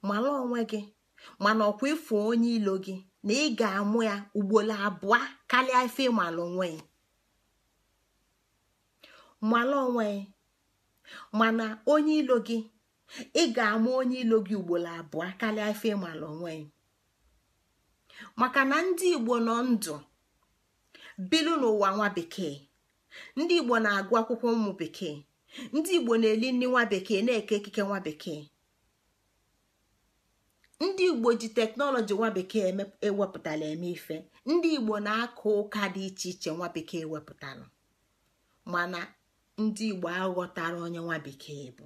mala onwe gị mana ọkwa ịfụ onye ilo gị na ị ga-amụ ya ugboro abụọ karịa ife malụ onwe ya onwe mana onye ilo gị ị ga-amụ onye ilo gị ugboro abụọ karịa ife ịmala onwe maka na ndị igbo nọ ndụ bilu n'ụwa nwa bekee ndị igbo na-agụ akwụkwọ ụmụ bekee ndị igbo na-eli nri nwa bekee na-eke ekike nwa bekee ndị igbo ji teknọlọji nwa bekee ewepụtala eme ife ndị igbo na-akụ ụka dị iche iche nwa bekee ewepụtala mana ndị igbo aghọtara onye nwa bekee bụ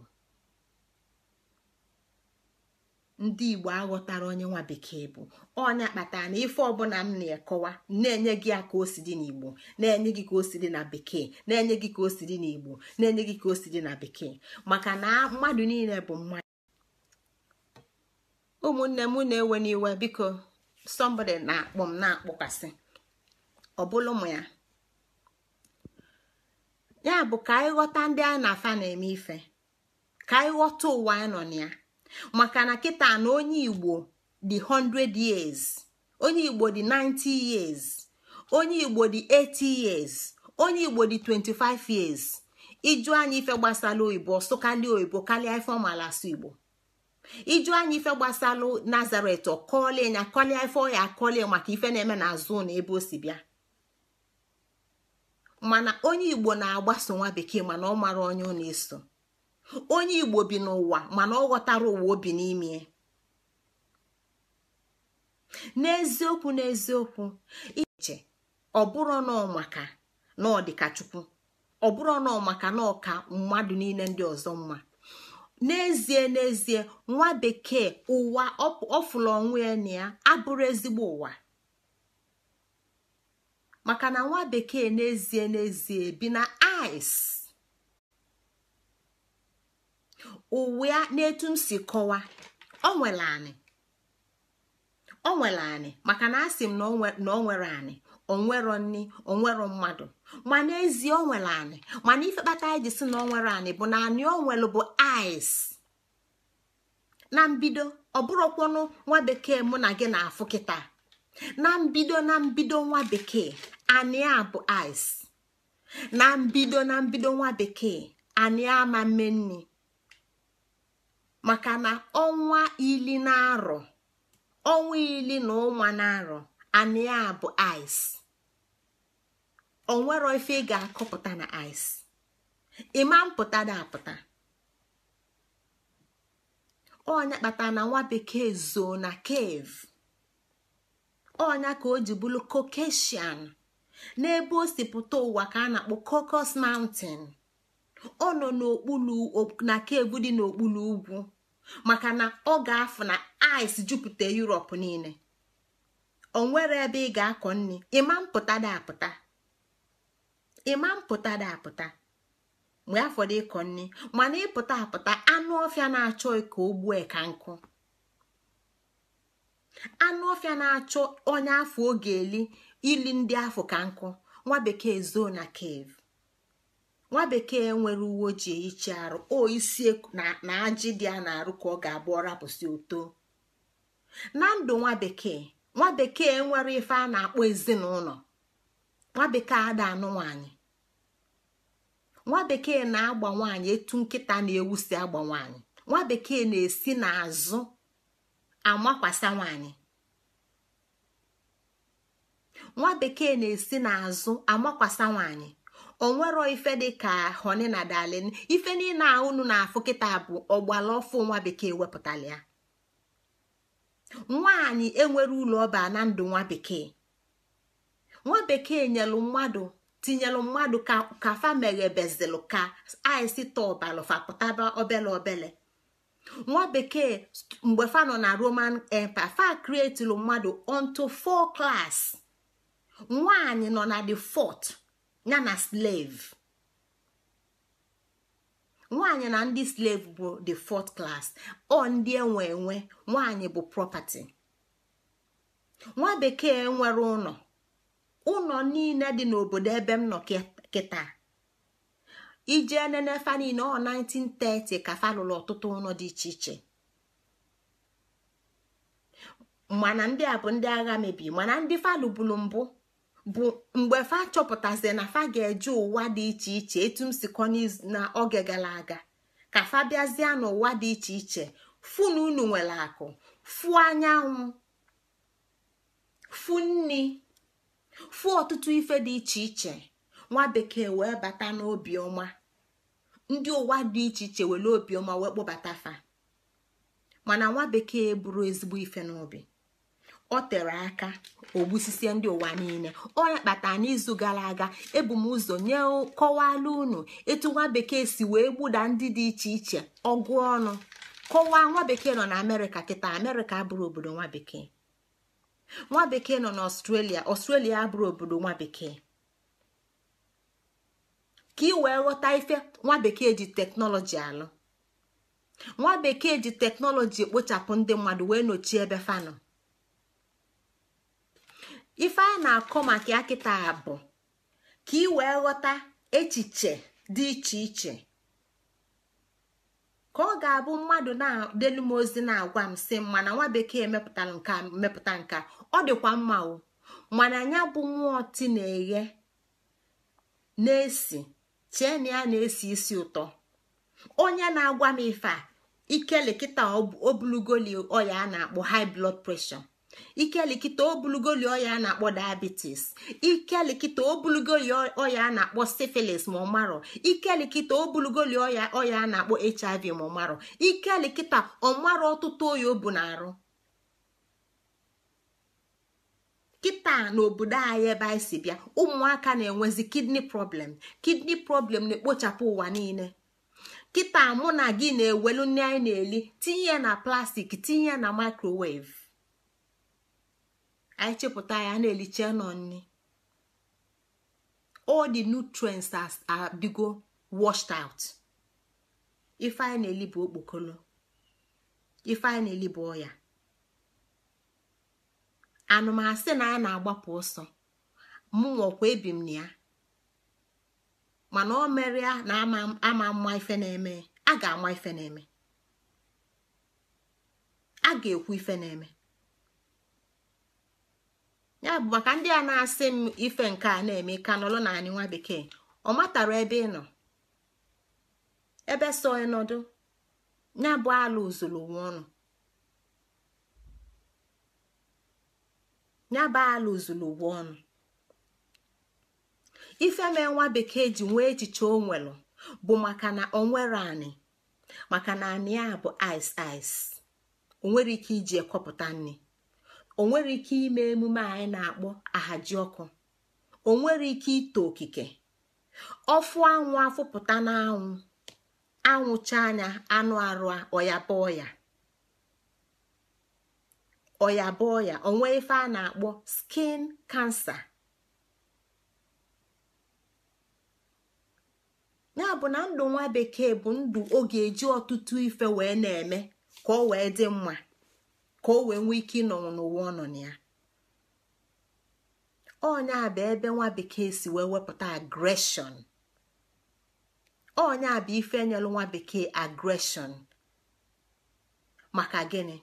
ndị igbo aghọtara onye nwa bekee bụ ọnya kpatara na ife ọbụla m na-ekọwa na-enye gị ya ka o si dị n'igbo na-enye gị ka o si dị na bekee na-enye gị ka o si dị n'igbo na-enye gị ka o si dị na bekee maka na mmadụ niile bụ mmadụ ụmụnne m na-ewe n'iwe biko somebody na-akpọ m na-akpọkwasị ọbụla ụmụ ya ya bụ ka anyị ghọta ndị anyị na afa na-eme ife ka anyị ghọta ụwa anyị nọ na ya maka na kịta na onye igbo dị 100 years onye igbo di 90 years onye igbo dị 80 years onye igbo dị 25 years iju anya ife gbasara oyibo sụkalịa oyibo kalia ife ọmala asụ igbo iju anyị ife gbasalụ nazaret ọkọlie nya kọlie ife ọya akọlie maka ife na-eme na azụ na ebe o si bịa mana onye igbo na-agbaso nwa bekee mana ọ mara onye ọ na-eso onye igbo bi n'ụwa mana ọ ghọtara ụwa obi n'ime n'eziokwu n'eziokwu iche ọ bụrụ nọọ maka na ọ chukwu ọ bụrụ maka na ka mmadụ niile ndị ọzọ mma n'ezie n'ezie nwa bekee ụwa ọfụlụ onwe ya na abụrụ ezigbo ụwa maka na nwa bekee n'ezie n'ezie bi na ice uwe n'etu m si kọwa ọ nwere anị ọ nwere anị maka na asị m na ọ nwere anị onwero nni onwero mmadụ ma n'ezie ọ nwere anị mana ife kpata anyị ji si na ọ nwere anị bụ na anị ọ nwere bụ ais na mbido ọ bụrụkwanụ nwa bekee mụ na gị na-afụ kịta na mbido na mbido nwa bekee anị a bụ ais na mbido na mbido nwa bekee anị ama mme nni maka na ọnwa ili na arọ ọnwa ili na ụnwa na arọ anị bụ ice onwere ife ị ga-akọpụta na ice ịma mpụta da apụta onya kpatara na nwa bekee zoo na cave ọnya ka o ji bụrụ Caucasian n'ebe o si ụwa ka a na-akpọ Caucasus Mountain ọ nọ na cave dị n'okpuru ugwu maka na ọ ga-afụ na ice jupụta Europe niile o nwere ebe ị ga-akọ nri ịma mpụta dị apụta ịma mpụta dị apụta mgbe dị ịkọ nri mana ịpụta apụta anụ ọfịa na-achọ ka o gbue ka nkụ anụ ọfịa na-achọ onye afọ oge eli ili ndị afọ ka nkụ nwa bekee zoo na cave nwa bekee nwere uwe ojii ichi arụ o isi na ajị dị a na-arụ ka ọ ga-abụ ọrapụsị oto na ndụ nwa bekee nwa bekee nwere ife a na-akpọ ezinụlọ nwa bekee ada anụ nwanyị nwa bekee na-agba nwanyị etu nkịta na-ewu si agba nwanyị nwa bekee na-esi n'azụ amakwasa nwaanyị nwa bekee na-esi n'azụ amakwasa nwaanyị onwero ife ka honi na dalin ife niile a unu na-afụ kịta bụ ọgbala ọfụ nwa bekee wepụtala ya nwaanyị enwere ụlọ ọba na ndụ nwa bekee nwa bekee nyelu mmadụ tinyelu mmadụ ka fa meghebezilụ ka aisita ọbalụfa pụtaba obele obele nwa bekee mgbe fa nọ na roman empire fa krietilu mmadụ onto four klas nwaanyị nọ na the fourth ya na slave nwaanyị na ndị slave bụ the fourth class ọ ndị enwe enwe nwaanyị bụ property nwa bekee nwere ụlọ ụlọ niile dị n'obodo ebe m nọ kịta ije nene fa ọ 1930 ka falụrụ ọtụtụ ụlọ dị iche iche mana ndị a bụ ndị agha mebi mana ndị falụ bụrụ mbụ bụ mgbe fa chọpụtazi na fa ga-eje ụwa dị iche iche etu m sikọ na oge gara aga ka fa bịazie n'ụwa dị iche iche fụ na nwere akụ fụ anyanwụ fu nni fụ ọtụtụ ife dị iche iche nwa bekee wee bata n'obioma ndị ụwa dị iche iche were obiọma wee kpọbata fa mana nwa bekee bụrụ ezigbo ife n'obi o tere aka ogbusisie ndị ụwa niile onye kpata n'izu gara aga ebu m ụzọ nye kọwalụ unu etu nwa bekee si wee gbuda ndị dị iche iche ọgụ ọnụ kọwaa nwa bekee nọ na amerịka kịta amerịka abụrụ obodo nwa bekee nwa bekee nọ na ọstrelia ọstrelia abụrụ obodo nwa bekee ka ị wee ghọta ife nwa bekee ji teknọlọji alụ nwa bekee ji teknọlọji ekpochapụ ndị mmadụ wee nochie ebe fanụ. ife a na-akọ maka ya kịta bụ ka ị wee ghọta echiche dị iche iche ka ọ ga-abụ mmadụ na delu m ozi na-agwa m sị mana nwa bekee mepụtara nka mepụta nka ọ dịkwa mma o mana ya bụ nwaọtị na-eghe na-esi chee na ya na-esi isi ụtọ onye na-agwa m ife a ike lekịta obulugoli ọya a na-akpọ high blood pressure ikelikita obulugoli ọya a na-akpọ diabetes ikelikita obulugoli ọya a na-akpọ syphilis ma ikeli ikelikita obulugoli oya a na-akpọ hiv ma ikeli ikelikita ọmarụ ọtụtụ oyi o bu na-arụ kịta n'obodo anyị ebe anyị si bịa ụmụaka na-enwezi kidney problem kidney problem na-ekpochapụ ụwa niile kịta mụ na gị na-ewelu nne anyị na-eli tinye na plastik tinye na microwave anyị chepụta ya na-eliche nọ nni all the nutrients adịgo washed out ife anyị na-eli bụ okpokolo ife na-eli bụ ọya anụmasị na a na-agbapụ ọsọ mụnwakwa ebi m na ya mana o mere ya na ama mma ife na-eme a ga-ama ife na-eme a ga-ekwu ife na-eme ya bụ maka ndị a na-asị m ife nke a na-eme ka nọrọ na anyị nwa bekee ọ matara ebe ị nọ ebe so ọnọdụ ya ala ozuru ọnụ ife mee nwa bekee ji nwee echiche o bụ maka na o nwere anị maka na anị a bụ ice ice o nwere ike iji ekọpụta nri o nwere ike ime emume anyị na-akpọ ahaji ọkụ o nwere ike ito okike ọfụ anwụ afụpụta n'anwụ anwụcha anya anụ arụ ọyaba ọya ọyaba ọya onwe ife a na-akpọ skin kansa ya bụ na ndụ nwa bekee bụ ndụ ọ eji ọtụtụ ife wee na-eme ka ọ wee dị mma ka o wee nwee ike ịnọ n'ụwa ọ nọ na ya ọnya bụ ebe nwa bekee si wee wepụta agreshọn a bụ ife enyelụ nwa bekee agreshọn maka gịnị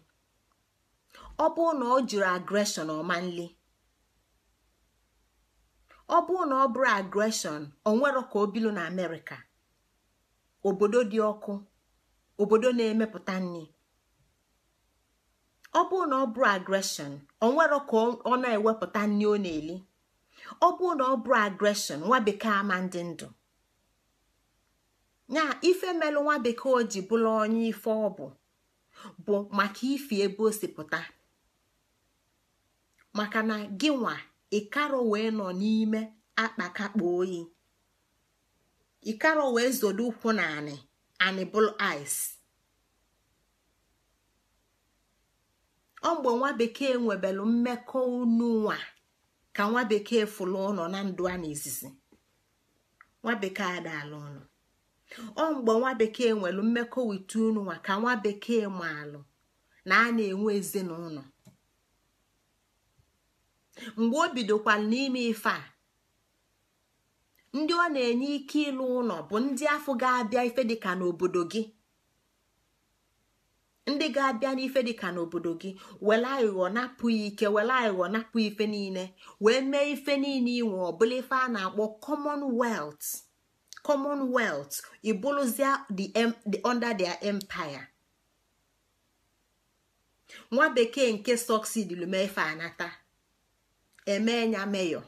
ọ bụrụ na ọ jiri agreshọn ọma nli ọ bụrụ na ọ bụrụ agreshọn ọ nwere ka o bilu na amerịka obodo dị ọkụ obodo na-emepụta nri ọ bụrụ na ọ bụ agreshọn onwero ka ọ na-ewepụta nri ọ na-eli ọ bụrụ na ọ bụ agreshọn nwa bekee ama ndị ndụ nya ife melụ nwa bekee o ji bụla onye ife ọ bụ maka ife ebe o pụta maka na gị nwa ịkaro wee nọ n'ime akpakakpa oyi ịkaro wee zodo ụkwụ na anị anị ice ọ mgbe nwa bekee nwebelu mmekọ unu nwa ka nwa bekee fụlụ ụlọ na ndụ a n'izizi nwa bekee adaala ụlọ ọ mgbe nwa bekee nwelu mmekọ wite unu nwa ka nwa bekee alụ, na a na-enwe ezinụlọ mgbe o bidokwala n'ime ife a ndị ọ na-enye ike ịlụ ụlọ bụ ndị afọ ga-abịa ife dịka n'obodo gị ndị ga-abịa n'ife dịka n'obodo gị were aghụghọ napụghị ike were aghụghọ napụ ife niile wee mee ife niile inwe ọbụla ife a na-akpọ commonwealth commonwealth ibụrụzia under their empire nwa bekee nke sọksidil mee ife anata emee ya meyọ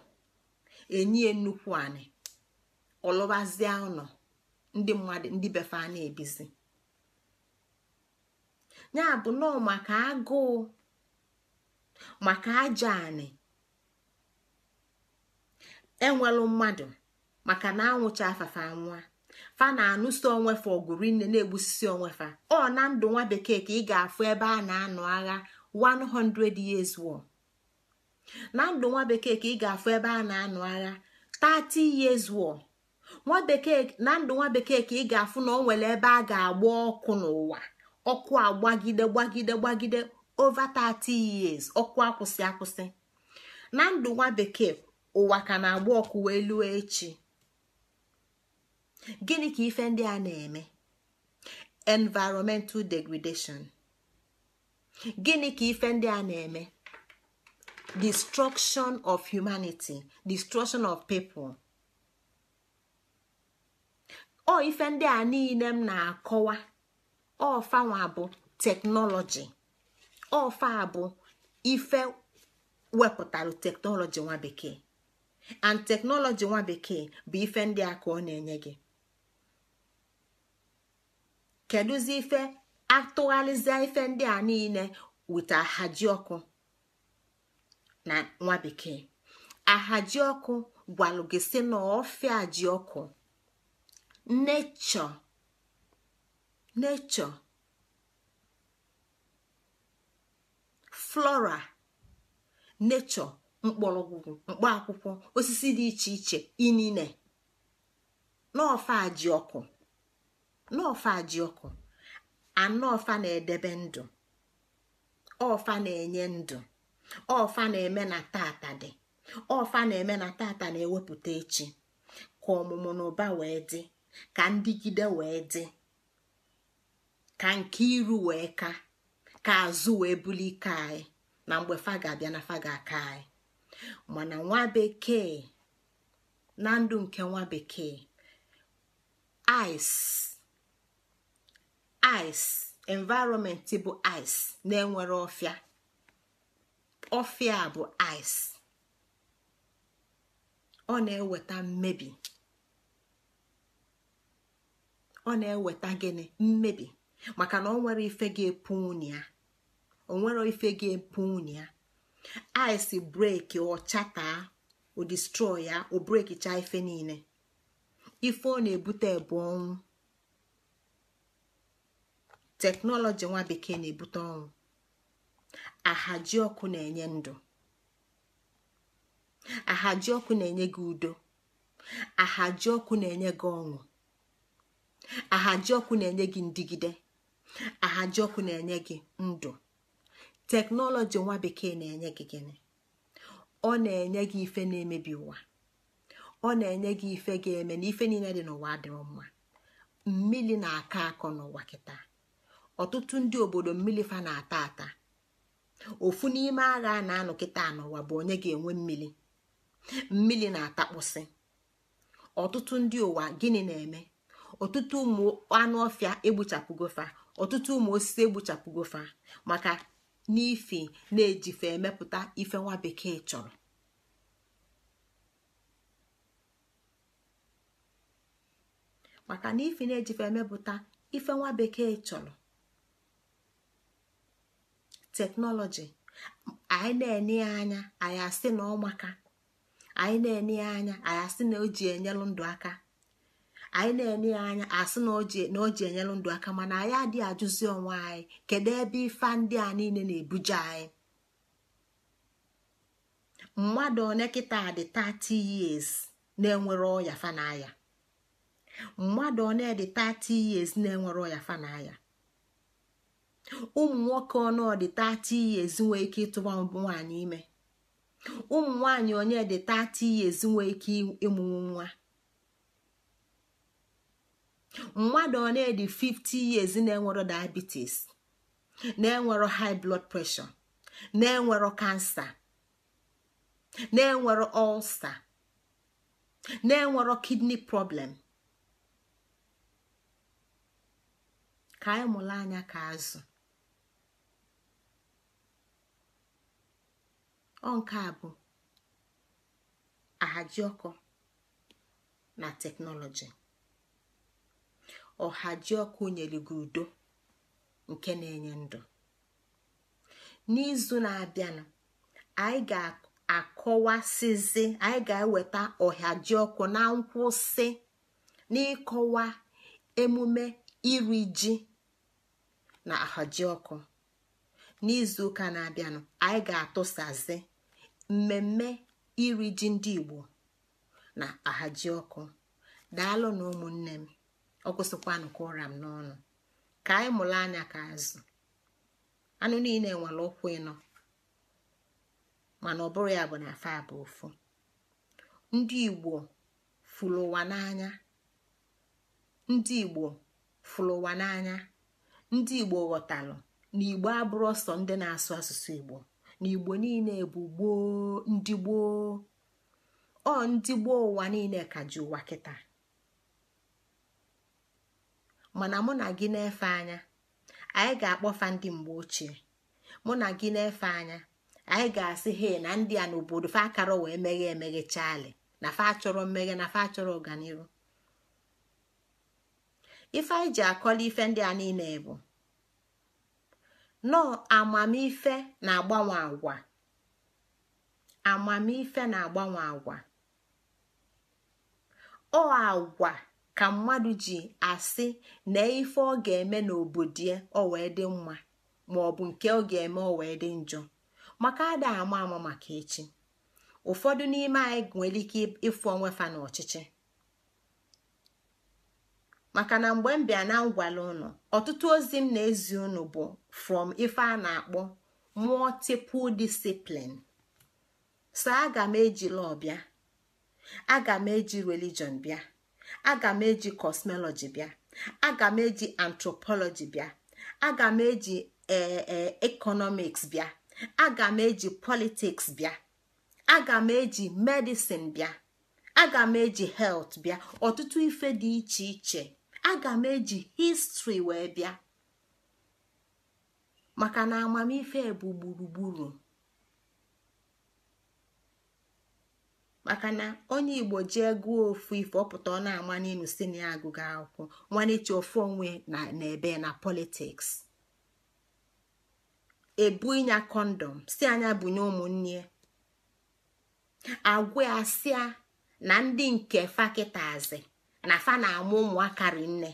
enyie nnukwu anị ọlụbazie ụlọ ndị mmadụ ndị befe a na-ebizi ya bụ nọọ maka agụụ maka ajọ anị enwelụ mmadụ maka na anwụcha afafa nwa fa na onwe onwefa ọgụrụ nne na-egbusisi onwefa ọ na ndụ nwa bekee ka ị ga-afụ ebe a na-anụ agha 100 years war na ndụ nwa bekee ka ị ga-afụ ebe a na-anụ agha 30 years war nwa bekee na ndụ nwa bekee ka ị ga-afụ na o nwere ebe a ga-agba ọkụ n'ụwa ọkụ agbagide gbagide gbagide over 30 years ọkụ akwụsị akwụsị na ndụ nwa bekee ụwa ka na-agba ọkụ wee lụọ echi gịnị ka ife ndị a na-eme environmental degradation gịnị ka ife ndị a na-eme destruction of humanity destruction of people O ife ndị a niile m na-akọwa ọfanwa bụ teknọlọji ọfa bụ ife wepụtara teknọlọji nwa bekee and teknọlọji nwa bekee bụ ife ndị a ka ọ na-enye gị kedụzi ife atụgharịzie ife ndị a niile wit ahaji ọkụ na nwa bekee ahaji ọkụ gwalụ gị si na ọfịa ji ọkụ nechọ nechọ flora nechọ mkpọrọgwụ mkpaakwụkwọ osisi dị iche iche inine n'ọfa ji ọkụ ajiọkụ na-edebe ndụ ọfa na-enye ndụ ọfa na-eme na tata dị ọfa na-eme na tata na-ewepụta echi ka ọmụmụ na ụba wee dị ka ndịgide wee dị ka nke iru wee ka ka azụ wee buli ike anyị na mgbe fa ga-abịa na fa aka anyị mana nwa bekee na ndụ nke nwa bekee ice ice environment bụ ice na-enwere ọfịa ọfịa bụ ice ọ na-eweta mmebi ọ na-eweta gịnị mmebi maka na onwere nwere ife ga-epu unyi ya o ife ga-epu ya ice breki ọchata o destroy ya o breki chaa ife niile ife ọ na-ebute bụ ọnwụ teknọlọji nwa bekee na-ebute ọnwụ ahaji ọkụ na-enye ndụ ahaji ọkụ na-enye gị udo ahaji ọkụ na-enye gị ọṅụ ahaji ọkụ na-enye gị ndigide ahajiọkụ na-enye gị ndụ teknọlọji nwa bekee na-enye gị gịnị ọ na-enye gị ife na-emebi ụwa ọ na-enye gị ife ga-eme na ife niile dị n'ụwa adịrọ mma mmiri na-akọ akọ n'ụwa kịta ọtụtụ ndị obodo mmiri fa na-ata ata ofu n'ime agha a na-anọ kịta n'ụwa bụ onye ga-enwe mmiri mmiri na-atakpụsị ọtụtụ ndị ụwa gịnị na-eme ọtụtụ ụmụ anụ ọfịa fa. ọtụtụ ụmụ osisi egbuchapụgofa maka n'ifi na-ejife emepụta ife nwa bekee chọrọ maka na ifi na-ejife emepụta ife nwa bekee chọrọ teknọlọji anyị na-ene ya anya anyị asị na ọmaka anyị na-ene ya anya anyị asị na o ji enyelụ ndụ aka anyị na-enye ya anya asị na ji enyelụ ndụ aka mana anyị adịghị ajụzi onwe anyị kedu ebe ife ndị a niile na-ebuje anyị mmadụ one kịta dị 30 years na-enwere ọya fanaya mmadụ one dị 30 years na-enwere ọya fanaya ụmụ nwoke ọnụ dị 30 years nwee ike ịtụba nwaanyị ime ụmụ nwaanyị onye dị 30 years nwee ike ịmụnwu nwa mmadụ ọ na-edi 50 years na-enwero diabetes na-enwero high blood pressure na-enwero kansa na-enwero ulcer na-enwero kidney problem ka anyị mụrụ anya ka azụ ọ nke a bụ ahajiọkụ na teknọlọji ọha ji ọkụ nyere gị udo nke na-enye ndụ n'izu na-abịanụ anyị ga-akọwasịzi anyị ga-eweta ọha ọkụ na nkwụsị n'ịkọwa emume iri ji na ahaji ọkụ n'izu ụka na-abịanụ anyị ga-atụsazi mmemme iri ji ndị Igbo na ahaji ọkụ daalụ na ụmụnne m ọ kwụsịkwanụ ka ụra m n'ọnụ ka anyị mụrụ anya ka azụ anụ niile nwere ụkwụ ịnọ mana ọbụrụ ya bụ na afa bụ ofu ndị igbo fụrụ n'anya ndị igbo fụrụ igbo ghọtalụ na igbo abụrụ ọsọ ndị na-asụ asụsụ igbo na igbo niile bụ gboo ndị gboo ọ ndị gboo ụwa niile ka ji ụwa kịta mana mụ na gị na-efe anya anyị ga-akpọfa ndị mgbe ochie mụ na gị na-efe anya anyị ga-asị he na ndị a n'obodo fa akara wee meghe emeghe na fa achọrọ mmeghe na fa achọrọ ọganihu ife anyị ji akọla ife ndị a niile bụ nọọ amamife na-agbanwe agwa amamife na-agbanwe agwa ọ agwa ka mmadụ ji asị na ife ọ ga-eme n'obodo ya ọ wee dị mma ma ọ bụ nke ọ ga-eme ọ wee dị njọ maka ada ama ama maka echi ụfọdụ n'ime anyị nwere ike ịfụ onwe fa n'ọchịchị maka na mgbe m bịa na ngwala ụnụ ọtụtụ ozi m na-ezi ụnụ bụ from ife a na-akpọ multiple discipline so aga m eji law bịa aga m eji religion bịa aga m eji kosmọlọji bịa aga m eji antropọlọji bịa aga m eji ee ekọnọmiks bịa aga m eji politiks bịa aga m eji medisin bịa aga m eji helt bịa ọtụtụ ife dị iche iche aga m eji histri wee bịa maka na amamife bụ gburugburu maka na onye igbo jee gụọ ofu ife ọpụta ọ na-ama n'elu si na ya akwụkwọ ofu onwe na ebe na politiks ebu ịnya kọndọm si anya bunye ụmụnne agwa asịa na ndị nke fakịtazi na fa na-amụ ụmụaka rinne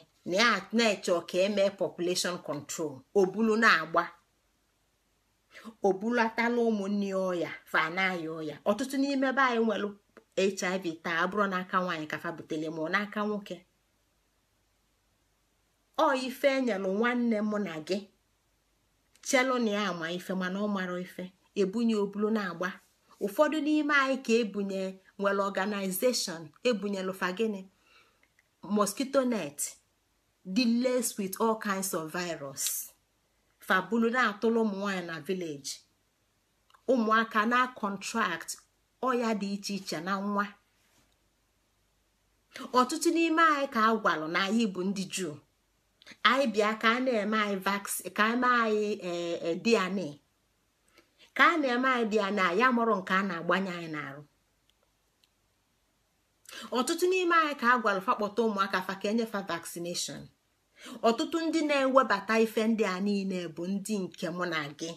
na-eche ka eme population control obulu na-agba o bulatala ụmụnne ọya fanaya ọya ọtụtụ n'ime ebe anyị nwere hiv taa abụrụ n'aka nwaanyị ka fabutele butere ma ọ n'aka nwoke ọ ife enyelụ nwanne mụ na gị chelu na ya ama ife mana ọ mara ife ebunye obulu na-agba ụfọdụ n'ime anyị ka ebunye nwere ọganizeshọn ebunyelu fagini mosquito net deals with all kinds of virus fabulu na-atụrụ ụmụ nwaanyị na vileji ụmụaka na kọntrakt ọya dị iche iche na nwa ọtụtụ n'ime anyị ka a gwalụ na anyị bụ ndị juu anyị bịa ka a na-eme anyị ka eme anyị eh, eh, DNA ka a na-eme anyị DNA ya mụrụ nke a na-agbanye anyị n'arụ ọtụtụ n'ime anyị ka a gwalụ fakpọta ụmụaka fa ka enyefa vaccination ọtụtụ ndị na-ewebata ife ndị a niile bụ ndị nke mụ na gị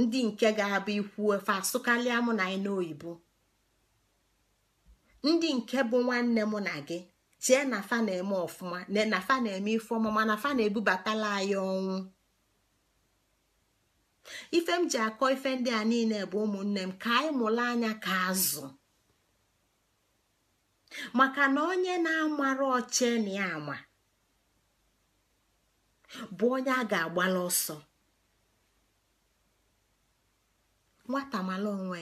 ndị nke ga-abụ ikwu efe asụkalịa mụ na anyị n'oyibo ndị nke bụ nwanne mụ na gị chee na fa na-eme ọfụma na fa na-eme ife ọma mana fa na-ebubatala anyị ọnwụ ife m ji akọ ife ndị a niile bụ ụmụnne m ka anyị mụrụ anya ka azụ maka na onye na-amara oche na ya ama bụ onye a ga-agbala ọsọ nwata mala onwe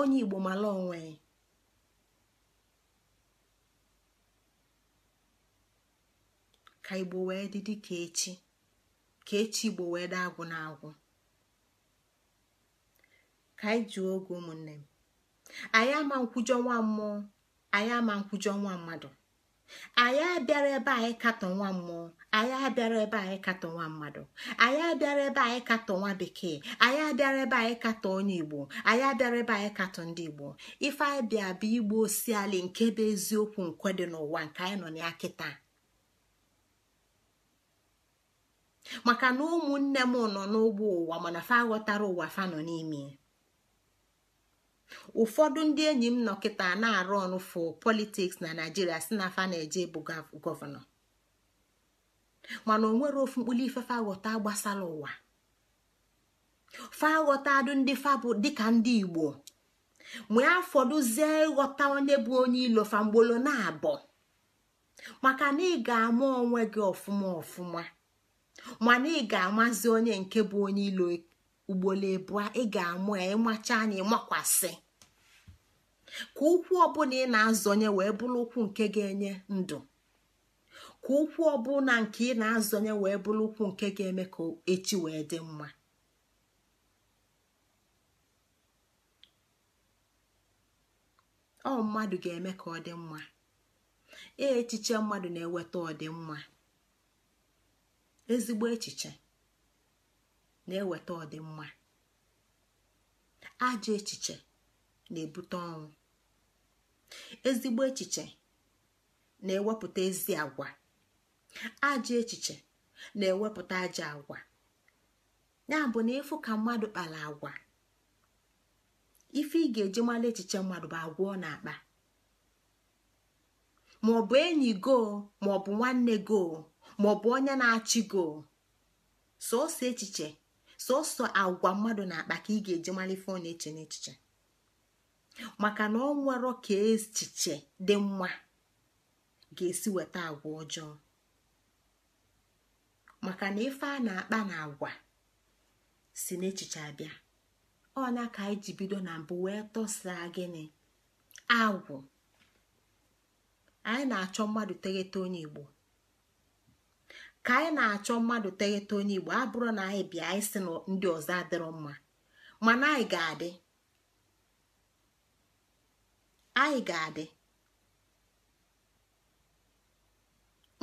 onye igbo mala onwe ka igbo wee dị dị ka echi ka echi igbo wee dị agwụ na agwụ ka anyị jụọ oge ụmụnne m anyị ama nkwụjọ nwa mmụọ anyị ama nkwụjọ nwa mmadụ anyị abịara ebe anyị katọ nwa mmụọ anyị abịara ebe anyị katọ nwa mmadụ anyị abịara ebe anyị katọ nwa bekee anyị abịara ebe anyị katọ onye igbo anyị abịara ebe anyị katọ ndị igbo ife anyị bịa bụ igbo osiali nke bụ eziokwu nkwe dị n'ụwa nke anyị nọ ya kịta maka na ụmụnne m nọ n'ụgbọ ụwa mana fa aghọtara ụwa fa nọ n'ime ụfọdụ ndị enyi m nọ na-arụ ọnụ fụ politiks na naijiria si na fa na-eje bụ gọvanọ mana o nwere ofu ife faghọta ghọta gbasara ụwa faghọta adụ ndị Igbo: Mgbe dịka ndị igbo afọdụzie ịghọta onye bụ onye ilo fa na-abọ maka na ị ga-ama onwe gị ọfụma ọfụma mana ị ga-amazi onye nke bụ onye ilo ugboro ebua ị ga-amụ ya ịmacha anya ịmakwasị ka ụkwụ ọbụla ị na-azọnye wee bụrụ ụkwụ nke ga-enye ndụ ka ụkwụ ọbụla nke ị na-azọnye wee bụrụ ụkwụ nke ga-eme ka echi wee dị mma ọ mmadụ ga-eme ka ọ dị mma ee echiche mmadụ na-eweta ọdịmma ezigbo echiche na-eweta ọdịmma ajọ echiche na-ebute ọnwụ ezigbo echiche na-ewepụta ezi agwa ajọ echiche na-ewepụta ajọ agwa ya bụ na ịfụ ka mmadụ kpara agwa ife ị ga-eji mara echiche mmadụ bụ agwa na-akpa maọbụ enyi go maọbụ nwanne go maọbụ onye na-achị go echiche sọsọ agwa mmadụ na-akpa ka ị ga-eji mara na-eche n'echiche maka na ọ ka echiche dị mma ga-esi weta agwa ọjọọ maka na ife a na-akpa na agwa si n'echiche abịa ọ na ka anyị ji bido na mbụ wee tọsaa gịnị agwụ anyị na-achọ mmadụ teghete onye igbo ka anyị na-achọ mmadụ teghete onye igbo abụrụ na anyị bịa anyị si na ndị ọzọ adịrọ mma mana anyị ga-adị anyị ga-adị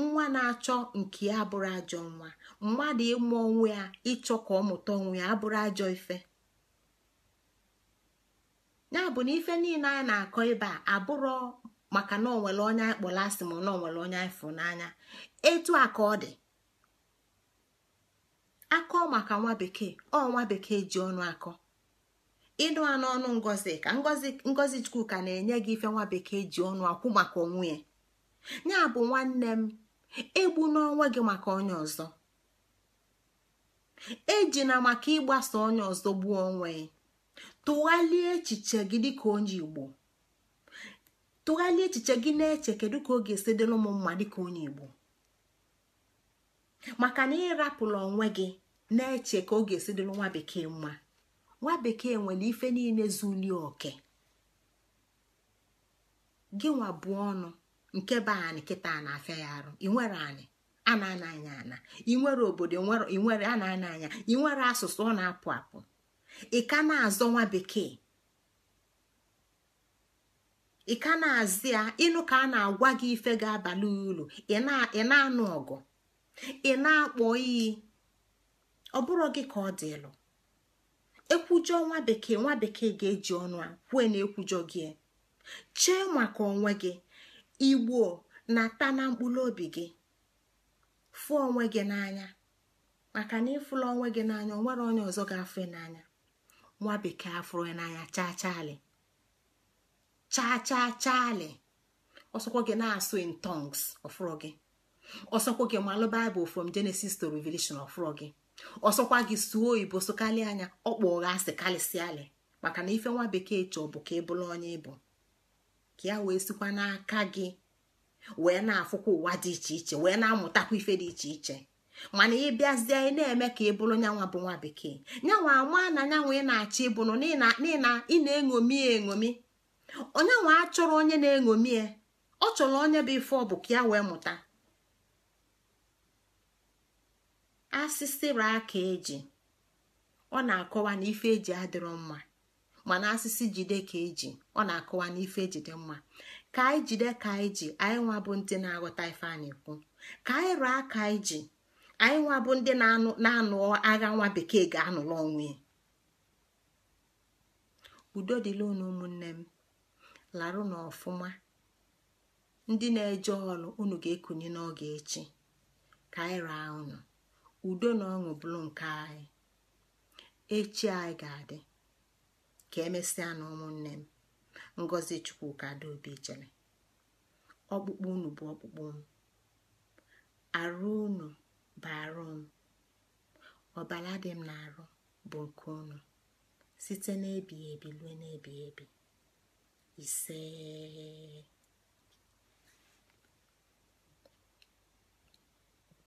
nwa na-achọ nke ya abụrụ ajọ nwa mmadụ ịmụ onwe ya ịchọ ka ọ mụta onwe ya abụrụ ajọ ife ya bụ na ife niile anyị na-akọ ebe a abụrụ maka na onwere onye anyị kpọrọ asị ma na onwere onye anyị fụ n'anya etu a ka ọ dị akọ maka nwa bekee ọ nwa bekee ji ọnụ akọ ịnụ a n'ọnụ ngozi ka ngozi chukwu ka na-enye gị ife nwa bekee ji ọnụ akwụ maka onwe ya ya bụ nwanne m egbu n'onwe gị maka onye ọzọ ejina maka ịgbasa onye ọzọ gbuo onwe tụghalie echiche gị dịka onye igbo tụghalie echiche gị na-eche kedu ka ọ ga-esi m mma dịka onye igbo maka na ịrapụla onwe gị na-eche ka ọ ga-esi dịrị nwa bekee mma nwa bekee nwere ife niile zuli oke gị nwa bụ ọnụ nke be anyị kịta a na-afịa ya arụ inwere anyị a na-ana anya ana inwere obodo inwere a na-ana anya inwere asụsụ ọ na-apụ apụ ị ka na-azọ nwa bekee ị ka na-azị ya ịnụ ka a na-agwa gị ife ga-abalị uru ị na-anụ ọgụ ị na-akpọ iyi ọ bụrụ gị ka ọ dị ịlụ ekwujọ nwa bekee nwa bekee ga-eji ọnụ a kwue na ekwujọ gị chee maka onwe gị igbuo, na-ata na mkpụrụ obi gị fụ onwe gị n'anya maka na ịfụla onwe gị n'anya o nwere onye ọzọ ga-afụ n'anya nwa bekee afụrụ n'anya chaa chaali chaa chaa chaali ọsọkwa gị na-asụ in tongs ọfụrụ gị ọsọkwa gị malụ baịbụl from Genesis to Revelation of gị ọsọkwa gị suo oyibo sokalị anya ọkpọ ụgha asị maka na ife nwa bekee chọọ bụ ka ị e bụrụ onye ịbụ ka ya wee sikwa n'aka gị wee na-afụkwa ụwa dị iche iche wee na-amụtakwa ife dị iche iche mana ị bịazie ị na-eme ka ị e bụrụ nyanwa bụ nwa bekee nyanwa ama na nyanwa ị na-achọ na ị na-eṅomi eṅomi onyanwa achọrọ onye na-eṅomi ọ chọrọ onye bụ ife ọ bụ ka ya wee mụta asịsịra aka eji ọ na-akọwa na ife eji adịrọ mma mana asịsị jide ka eji ọ na-akọwa na ife ejide mma ka anyị jide ka anyị ji anyị nwa bụ ndị na-aghọta ife a na-ekwu ka anyị rụọ aka anyị ji anyị nwa bụ ndị na-anụ agha nwa bekee ga-anụla onwe ya udo dịla unu ụmụnne m larụ na ọfụma ndị na-eje ọrụ unu ga-ekunye n'oge echi ka anyị raa unu udo na ọṅụ bụrụ nke anyị echi anyị ga-adị ka emesịa na ụmụnne m ngozi chukwuka obi jere ọkpụkpụ unu bụ ọkpụkpụ m arụ unu bụ arụ m ọbara dị m na-arụ bụ nke unu site n'ebighị ebi ruo n'ebighị ebi ise